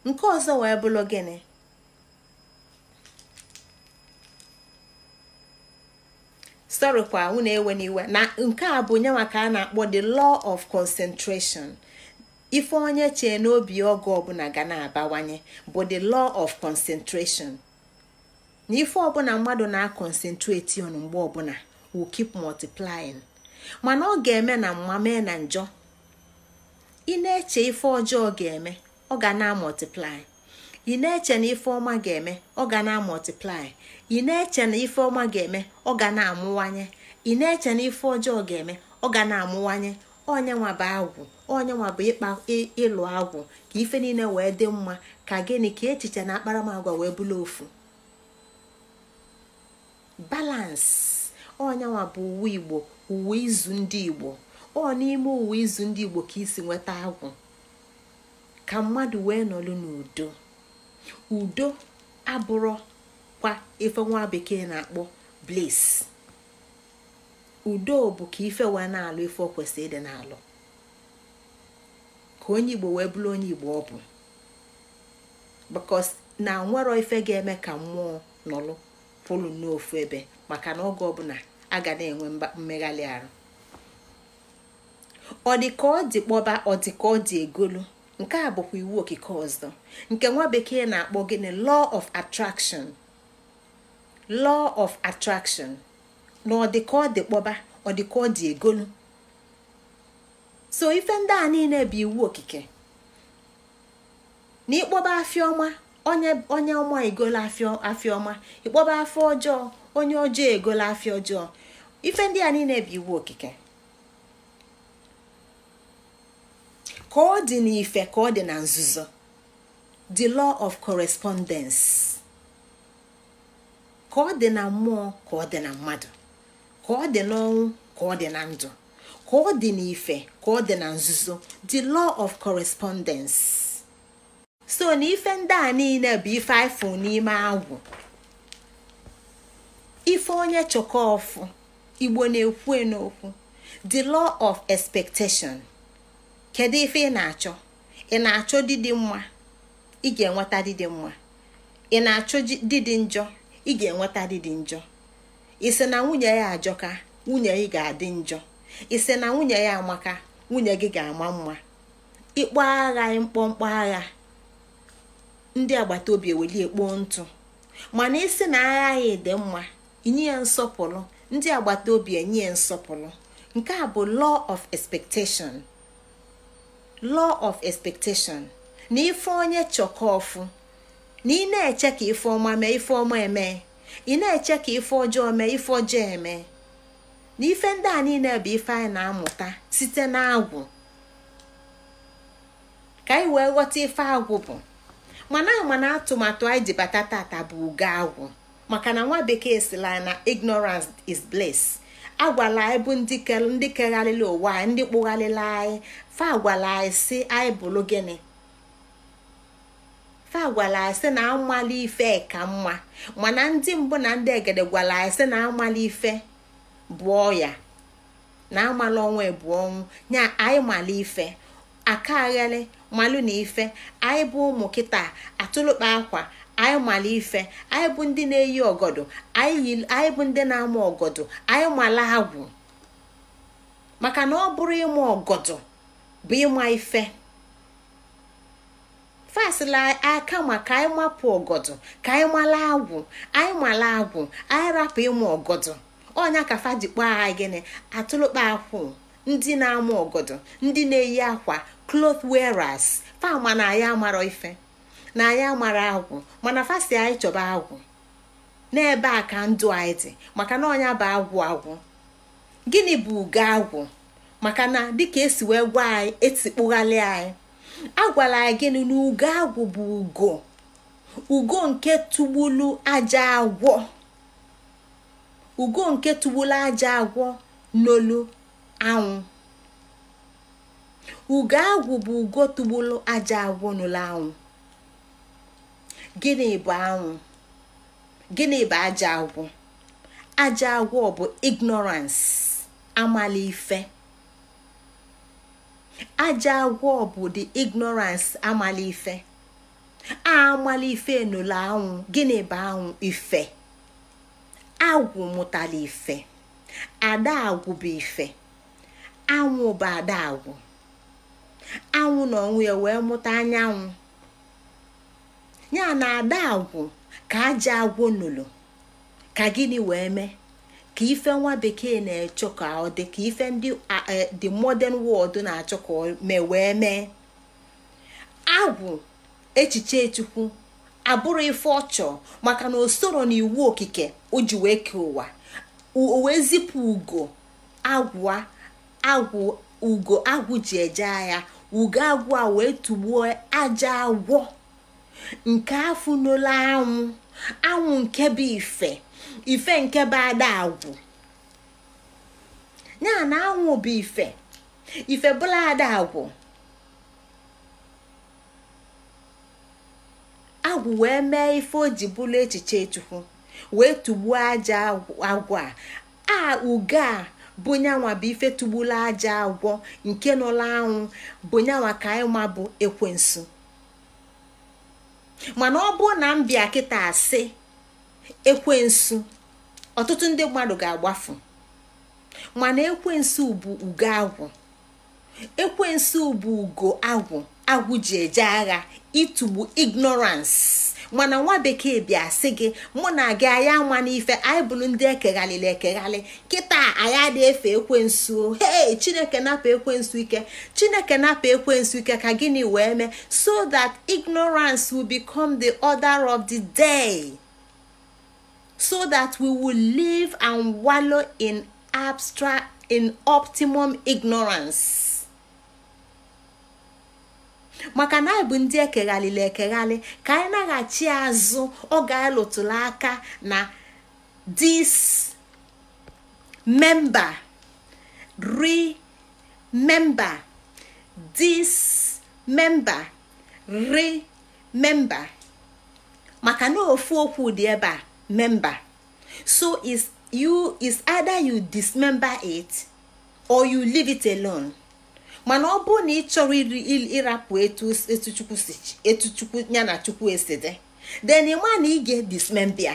nke ọzọ wee bụrụ gịnị sorry kwa na ewe n'iwe na nke a bụ nye maka a na-akpọ the law of concentration ife onye chee n'obi oge ọbụla ga na-abawanye bụ the law of concentration na ife ọbụla mmadụ na-akọnsentreti ọnụ mgbe ọbụla will keep multiplying mana ọ ga-eme na mma na njọ ị na-eche ife ọjọọ ga-eme ọ ga na-amọtiplai ị na-eche na ọma ga-eme ọ ga na-amọtiplai ị na-eche na ọma ga-eme ọ ga na-amụwanye ị na-eche na ife ọjọọ ga-eme ọ ga na-amụwanye onyenwa bụ agwụ onyenwa bụ ịkpa ịlụ agwụ ka ife niile wee dị mma ka gịnị ka echiche na akparamagwa wee bụla ofu balansi onyenwa bụ uwe igbo uwe izu ndị igbo ọ n'ime uwe izu ndị igbo ka isi nweta agwụ ka mmadụ wee nọrọ n'udo udo abụrụ kwa ife nwa bekee na-akpọ bliss udo bụ ka ife wee na-alụ ife o kwesịrị ịdị n'alụ ka onye igbo wee bụrụ onye igbo ọ bụ because na nwero ife ga-eme ka mmụọ nọlụ pụlụ n'ofu ebe maka na oge ọbụla a ga na-enwe mmegharị arụ ọ dị ka ọ dị kpọba ọ dị ka ọ dị egolu nke a bụkwa iwu okike ọzọ nke nwa bekee na-akpọ gịnị law of attraction law of attraction na ọ dị ka ọ dị kpọba ọ dị ka ọ dị egolu so ife ndị a niile bụ iwu okike na ịkpọba afịa ọma onye ọma egolu afịa ọma ịkpọba afọ ọjọọ onye ọjọọ egolu afịa ọjọọ ife ndị a niile bụ iwu okike ka ọ dị n'ife ka ọ dị na nzuzo the law of correspondence ka ọ dị na mmụọ ka ọ dị na mmadụ ka ọ dị n'ọnwụ ka ọ dị na ndụ ka ọ dị n'ife ka ọ dị na nzuzo the law of correspondence so na ife ndị a niile bụ ife aịfụ n'ime agwụ ife onye chọkọfụ igbo na-ekwu n'okwu the law of expectation kedu ife ị na-achọ ị na-achọ didi mma ị ga-enweta didi mma ị na-achọ didi njọ ị ga-enweta didi njọ isi na nwunye ya ajọka nwunye gị ga-adị njọ isi na nwunye ya amaka nwunye gị ga-ama mma ịkpọ agha mkpọmkpọ agha ndị agbata obi eweli ekpo ntụ mana ịsị na agha ya dị mma inye ya nsọpụrụ ndị agbata obi enye ya nsọpụrụ nke a bụ law of expectation law of expectation na ife onye chọkọfụ na ị na-eche ka ife ọma mee ife ọma eme ị na-eche ka ife ọjọọ mee ife ọjọọ eme na ife ndị a niile bụ ife anyị na-amụta site na agwụ, ka anyị wee ghọta ife agwụ bụ mana mana atụmatụ anyị ji bụ ugo agwụ maka na nwa bekee sila na ignorance is bliss agwala anyị bụ ndị kegharịla ụwa anyị ndị kpụgharịla anyị fa agwala anyị si anyị bụrụ gịnị fa gwara anyị sị na amala ife ka mma mana ndị mbụ na ndị egede gwara anyị sị na amala ife bụ ọya na amala ọnwa bụ ọnwụ nya anyị mala ife aka aghele malụ na ife anyị bụ ụmụ kịta atụlụkpa akwa anyị mala ife anyị bụ ndị na-eyi ọgọdọ anyị bụ ndị na-ama ọgọdọ anyị mala agwụ maka na ọ bụrụ ịma ọgọdọ bụ ịma ife fasịla aka ma ka anyị mapụ ọgọdọ ka anyị mala agwụ anyị mala agwụ anyị rapụ ịma ọgọdọ ọnya ka fa jikpọ agha gịnị atụlụkpa akwụ ndị na-ama ọgọdọ ndị na-eyi akwa cloth wearers fa ma na ya amarọ ife na anyị amara agwụ mana fasti anyị chọba agwụ n'ebe a ka ndụ anyị dị maka na ọnya bụ agwụ agwụ gịnị bụ ugo agwụ maka na dịka esi wee gwa anyị etikpụghalị anyị agwala anyị gịnị na ugo agwụ bụ ugo ugo nke tugbulu aja agwọ ugo nke tụgbulu aja agwọ n'olu anwụ ugo agwụ bụ ugo aja agwọ n'olu anwụ gịnị bụ anwụ gịnị bụ aja agwụ aja agwọ bụ ignorance amala ife aja agwọ bụ the ignorance amala ife amala ife nụla anwụ gịnị bụ anwụ ife agwụ mụtara ife ada agwụ bụ ife anwụ bụ ada agwụ anwụ na ọnwụ ya wee mụta anyanwụ ya na ada agwụ ka aja agwụ nụlụ ka gịnị wee mee ka ife nwa bekee na-echọ ka ọ dị ka ife ndị dị e, modern world na-achọ ka ọ mee wee mee agwụ echiche chukwu abụrụ ife ọchọ maka na o soro na okike o ji wee kee ụwa o wee ugo agwụ agwụ ugo agwụ ji eje agha ugo agwụ a wee tụgbuo aja agwọ nke n'ụlọ anwụ anwụ nke bụ ife ife nke bụ adagwụ ya na anwụ bụ ife ife bụla adagwụ agwụ wee mee ife o ji echiche chukwu wee tugbuo aja agwụ a a ugo a bụnyanwa bụ ife tụgbula aja agwọ nke nụla anwụ bụnyanwa ka anyị bụ ekwensu mana ọ bụrụ na m kita kịta asị ekwensu ọtụtụ ndị mmadụ ga-agbafu mana ekwensu bụ ugo agwụ ekwensu bụ ugo agwụ agwụ ji eje agha ịtụgbu ignorance mana nwa bekee bịa sị gị mụ na gị anya nwa n'ife anyị bụrụ ndị ekeghalịla ekeghalị kịta anyị adị efe ekwensu hei chineke napa ekwensu ike chineke napa ekwensu ike ka gịnị wee mee so that ignorance will become the order of the day so that we will live and wallow in abstract optimum ignorance maka na anyị bụ ndị ekeghalịla ekeghalị ka anyị naghachi azụ oge ga lụtụrụ aka na dis memba ri memba dis memba ri memba maka na ofu okwu dị ebe a memba so is you is either you dismember it or you leave it alone. mana ọ bụrụ na ị chọrọ ịrapụ etu chukwu ya na chukwu esi dị then ịma na ị ga-edismembia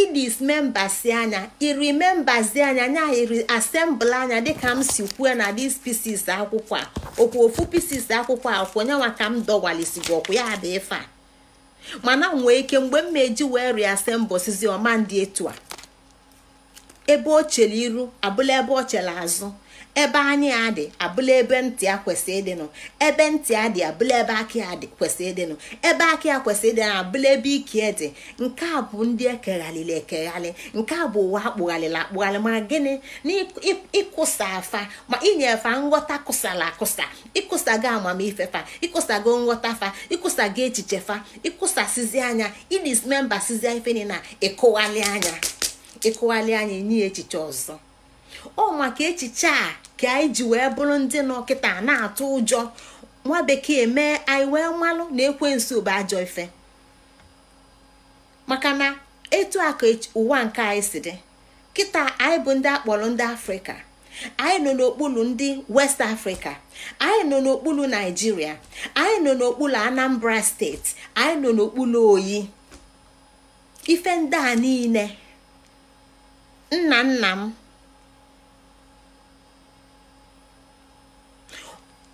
idismembasi anya irimembazi anya nya iri asembụl anya dịka m si kwuo na dis pisis akwụkwọ a okwu ofu pisis akwụkwọ a kwụ nyanwa ka m dọwalisigo ọkwụ ya dị ife a mana nwee ike mgbe m meji wee riasembụsizi ọma ndị etu a ebe o chere iru abụla ebe o chere azụ ebe anyị a dị abụla ebe ntị a kwesị ịdịnụ ebe ntị a dị abụla ebe aka a dị kwesị ịdịnụ ebe aka ya kwesịrị ịdịnụ abụla ebe ike e dị nke a bụ ndị ekeghalịla ekeghalị nke a bụ ụwa akpụghalịla akpụghalị ma gịnị na afa ma fa nghọta kụsala akụsa ịkwụsago amamife fa ịkụsago nghọta fa ịkwụsago echiche fa ịkụsasizi anya idismembasizi ife na ịkụghalị anya ịkụghalị anya enye echiche ọzọ ọ maka echiche a ka anyị ji wee bụrụ ndị nọ kịta na-atụ ụjọ nwa bekee mee anyị wee malụ na ekwe bụ ajọ ife maka na etu aka ụwa nke anyị si dị kịta anyị bụ ndị akpọrọ ndị afrịka anyị nọ n'okpuru ndị west afrịka anyị nọ n'okpuru naijiria anyị nọ n'okpuru anambra steeti anyị nọ n'okpuru oyi ife ndị a niile nna nna m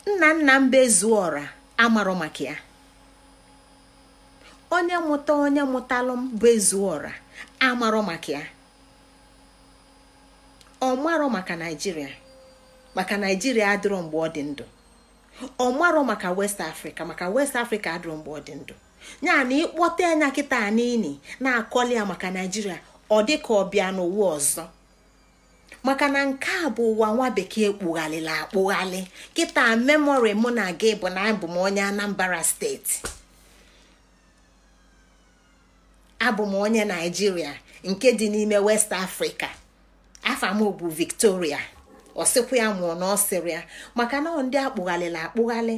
nna nna mba ezuora amarọ maka ya onye mụta onye mụtalụ bụ ezuora amarọ maka ya ọ marọ maka naijiria maka naijiria adịrọ mgbe ọ dị ndụ ọ marọ maka west afrịka maka west afrịka adịrọ mgbe ọ dị ndụ ya na ịkpọta anya kịta n'ini na-akọli ya maka naijiria ọ dị ka ọ bịa n'ụwa ọzọ maka na nke a bụ ụwa nwa bekee kpụghalịla akpụghalị kịta memori mụ na gị bụ na abụ m onye Anambra steeti abụ m onye Naijiria nke dị n'ime West Africa afọ m bụ Victoria ọsịkwa ya mụọ na ọsịrị maka na ndị akpụghalịla akpụghalị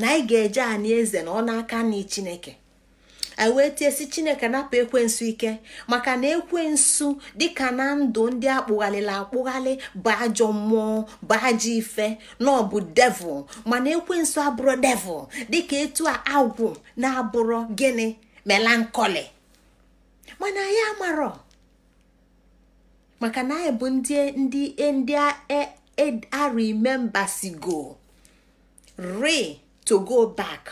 na ị ga-eje anị eze na ọ n'aka Chineke anyị wee tie si chineke napụ ekwensu ike maka na ekwensu dịka na ndụ ndị akpụghalịla akpụghalị bụ ajọ mmụọ bụ ajọ ife na ọ bụ devil mana ekwensu abụrụ devil dịka etu a agwụ na-abụrụ gịnị melankoli mana anyị amarọ maka na anyị bụ ndị ndị ndị a e, e, remember sigo re to go back.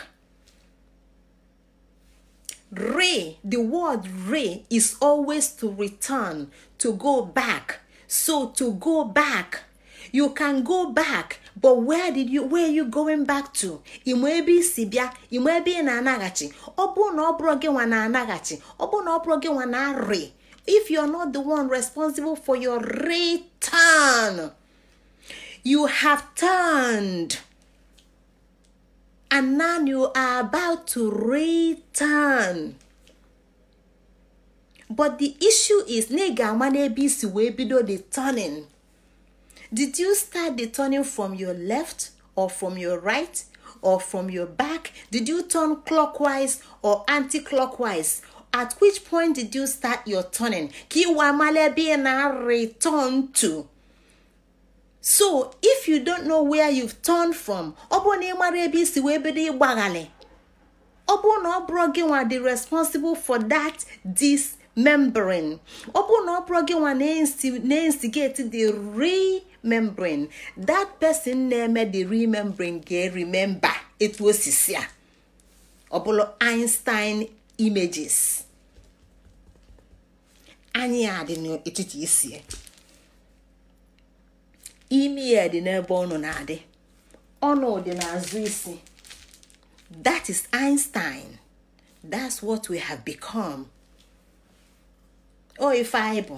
re the word re is always to return to go back so to go back you can go back but where did you where are you going back to ịma ebe isi bịa ịma ebe ị na-anaghachi ọ bụrụ na ọ bụrụ gị nwa na-anaghachi ọ bụrụ na ọ bụrụ gị nwa na re if you are not the one responsible for your return you have turned and now you are about to return but the issue is na ị ga-ama n'ebe isi wee bido the turning did you start the turning from your left or from your right or from your back did you turn clockwise or anti-clockwise at which point did you start your turning ka ịwa mala ebe ị na-return to so if you don't know where you've turned from ọ bụrụ na ị mara ebe isi wee bido ịgbaghalị ọ bụrụ na ọ bụrụ gị nwa dị responsible for that dismembering ọ bụrụ na ọ bụrụ gị nwa na-instigate the that person na-eme the membrane ga-remember etu osisi a ọ bụla Einstein images anyị a dị n'etiti isie imi ya dị n'ebe ọnụ na-adị ọnụ dị n'azụ isi that is Einstein that's what we have become o ife anyị bụ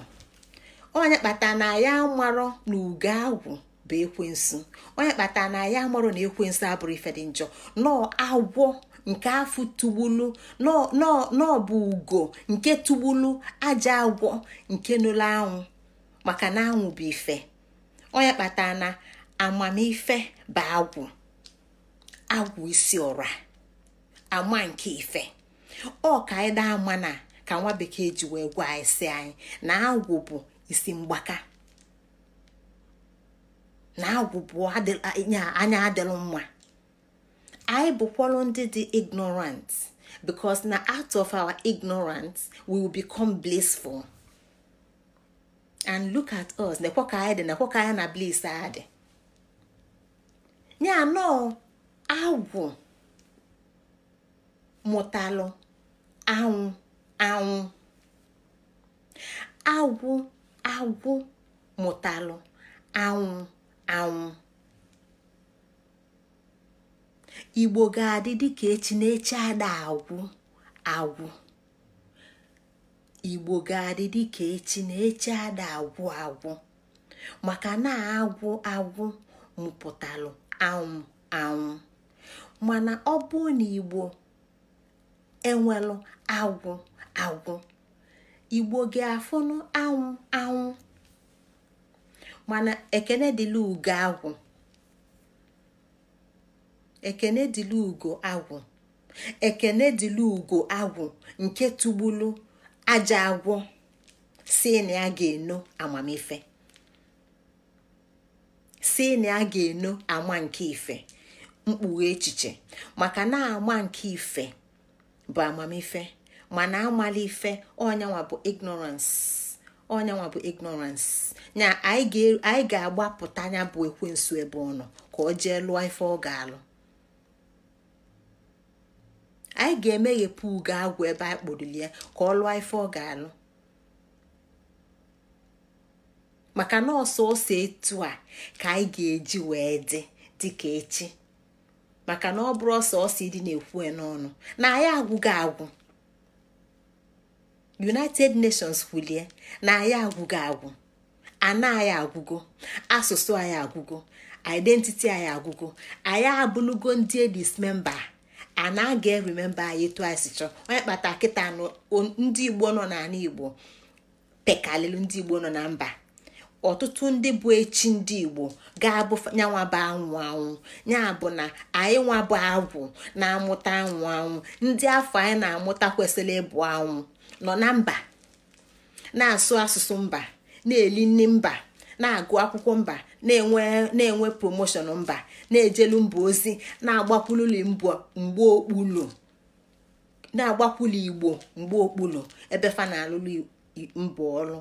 onye kpata na ya amarọ na ugo agwụ bụ ekwensu onye kpata na ya amarọ na ekwensu abụrụ ife dị njọ nọọ agwọ nke afụ tugbulu nọọ bụ ugo nke tugbulu aja agwọ nke nụlụ anwụ maka na anwụ bụ ife ọ ya na amamife bụ agwụ agwụ isi ọra ama nke ife ọ ka anyị daa ama na ka nwa bekee ji wee gwa anyị si anyị na agwụ bụ isi mgbaka na agwụ bụ anya adịlụ mma anyị bụkwalụ ndị dị ignorant because na out of our ignorance we will become blissful. and look at us nekwa ka anyị dị nekwa ka anyị na bliss a dị ya nọ agwụ mụtalụ anwụ anwụ agwụ agwụ mụtalụ anwụ anwụ igbo ga-adị dịka echi na echi ada agwụ agwụ igbo ga-adị dịka echi na echi ada agwụ agwụ maka na agwụ agwụ mụpụtalụ anwụ anwụ mana ọ bụ na igbo enwelụ agwụ agwụ igbo ga-afụnụ anwụ anwụ mana ekene dịlị ugo agwụ ekene dịlị ugo agwụ ekene dịlị ugo agwụ nke tụgbulu aja agwọ si na ya ga-eno amamife si na ya ga-eno ama nke ife mkpughe echiche maka na ama nke ife bụ amamife mana amala ife ọnyanwa bụ ignorance bụ ignorance na anyị ga-agbapụta anya bụ ekwensu ebe ọ nọ ka ọ jee lụọ ife ọ ga-alụ anyị ga-emeghepụ ugo agwụ ebe anyị kpụrụli ya ka ọ lụọ ife ọ ga-alụ maka ọsọ ose etu a ka anyị ga-eji wee dị dịka echi maka na ọ bụrụ ọsọ ọsọ ịdị na-ekwu n'ọnụ na anyị agwụghị agwụ united nations kwulie na anyị agwụgo agwụ ana anyị agwụgo asụsụ anyị agwụgo identity anyị agwụgo anyị abụlụgo ndị edis memba na aga remember anyị twice chọ onye kpata kịta ndị igbo nọ n'ala igbo pekalịlụ ndị igbo nọ na mba ọtụtụ ndị bụ echi ndị igbo ga-abụ nyanwa bụ anwụ anwụ ya bụ na anyị nwa bụ agwụ na-amụta anwụ anwụ ndị afọ anyị na-amụta kwesịrị ịbụ anwụ nọ na mba na-asụ asụsụ mba na-eli mba na-agụ akwụkwọ mba na-enwe na-enwe promoshọn mba na-ejelu mba ozi na-agbakwululi mgbe okpulu na-agbakwulu igbo mgbe okpulu ebe fa na-alụlụ mbụ ọrụ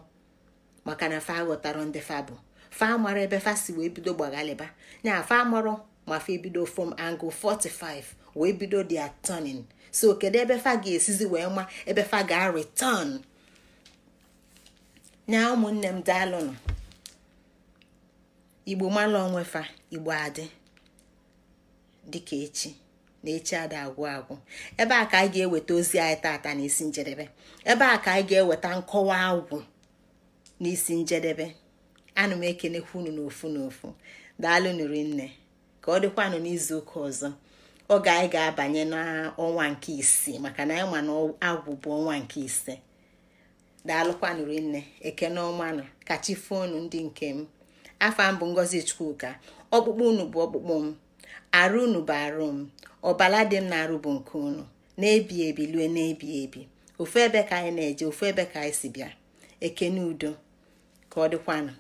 maka na fa ghọtara ndị fa bụ fa mara ebe fa si wee bido gbaghalịba na fa marọ ma fa ebido from angle 45 wee bido dia turning so kedu ebe fa ga-esizi wee ma ebe ga-return nya ụmụnne m dalụnụ igbo mala onwe fa igbo adị dịka echi na echi ada agwụ agwụ ebe a ka anyị ga-eweta ozi anyị tata n'isi isi njedebe ebe a ka anyị ga-eweta nkọwa agwụ n'isi njedebe ana m ekenekwa unu n'ofu n'ofu daalụ nri nne ka ọ dịkwanụ n'izu ụka ọzọ oge anyị ga-abanye n'ọnwa nke isii maka na anyị ma na agwụ bụ ọnwa nke ise daalụkwanụ nne ekene ọmanụ kachi fonu ndị nke m afọ m ngozi chukwuka ọkpụkpụ unu bụ ọkpụkpụ m arụ unu bụ arụ m ọbala dị m na-arụ bụ nke unu na-ebi ebi lue na-ebi ebi ofu ebe ka anyị na-eje ofu ebe ka anyị si bịa ekene udo ka ọ dịkwanụ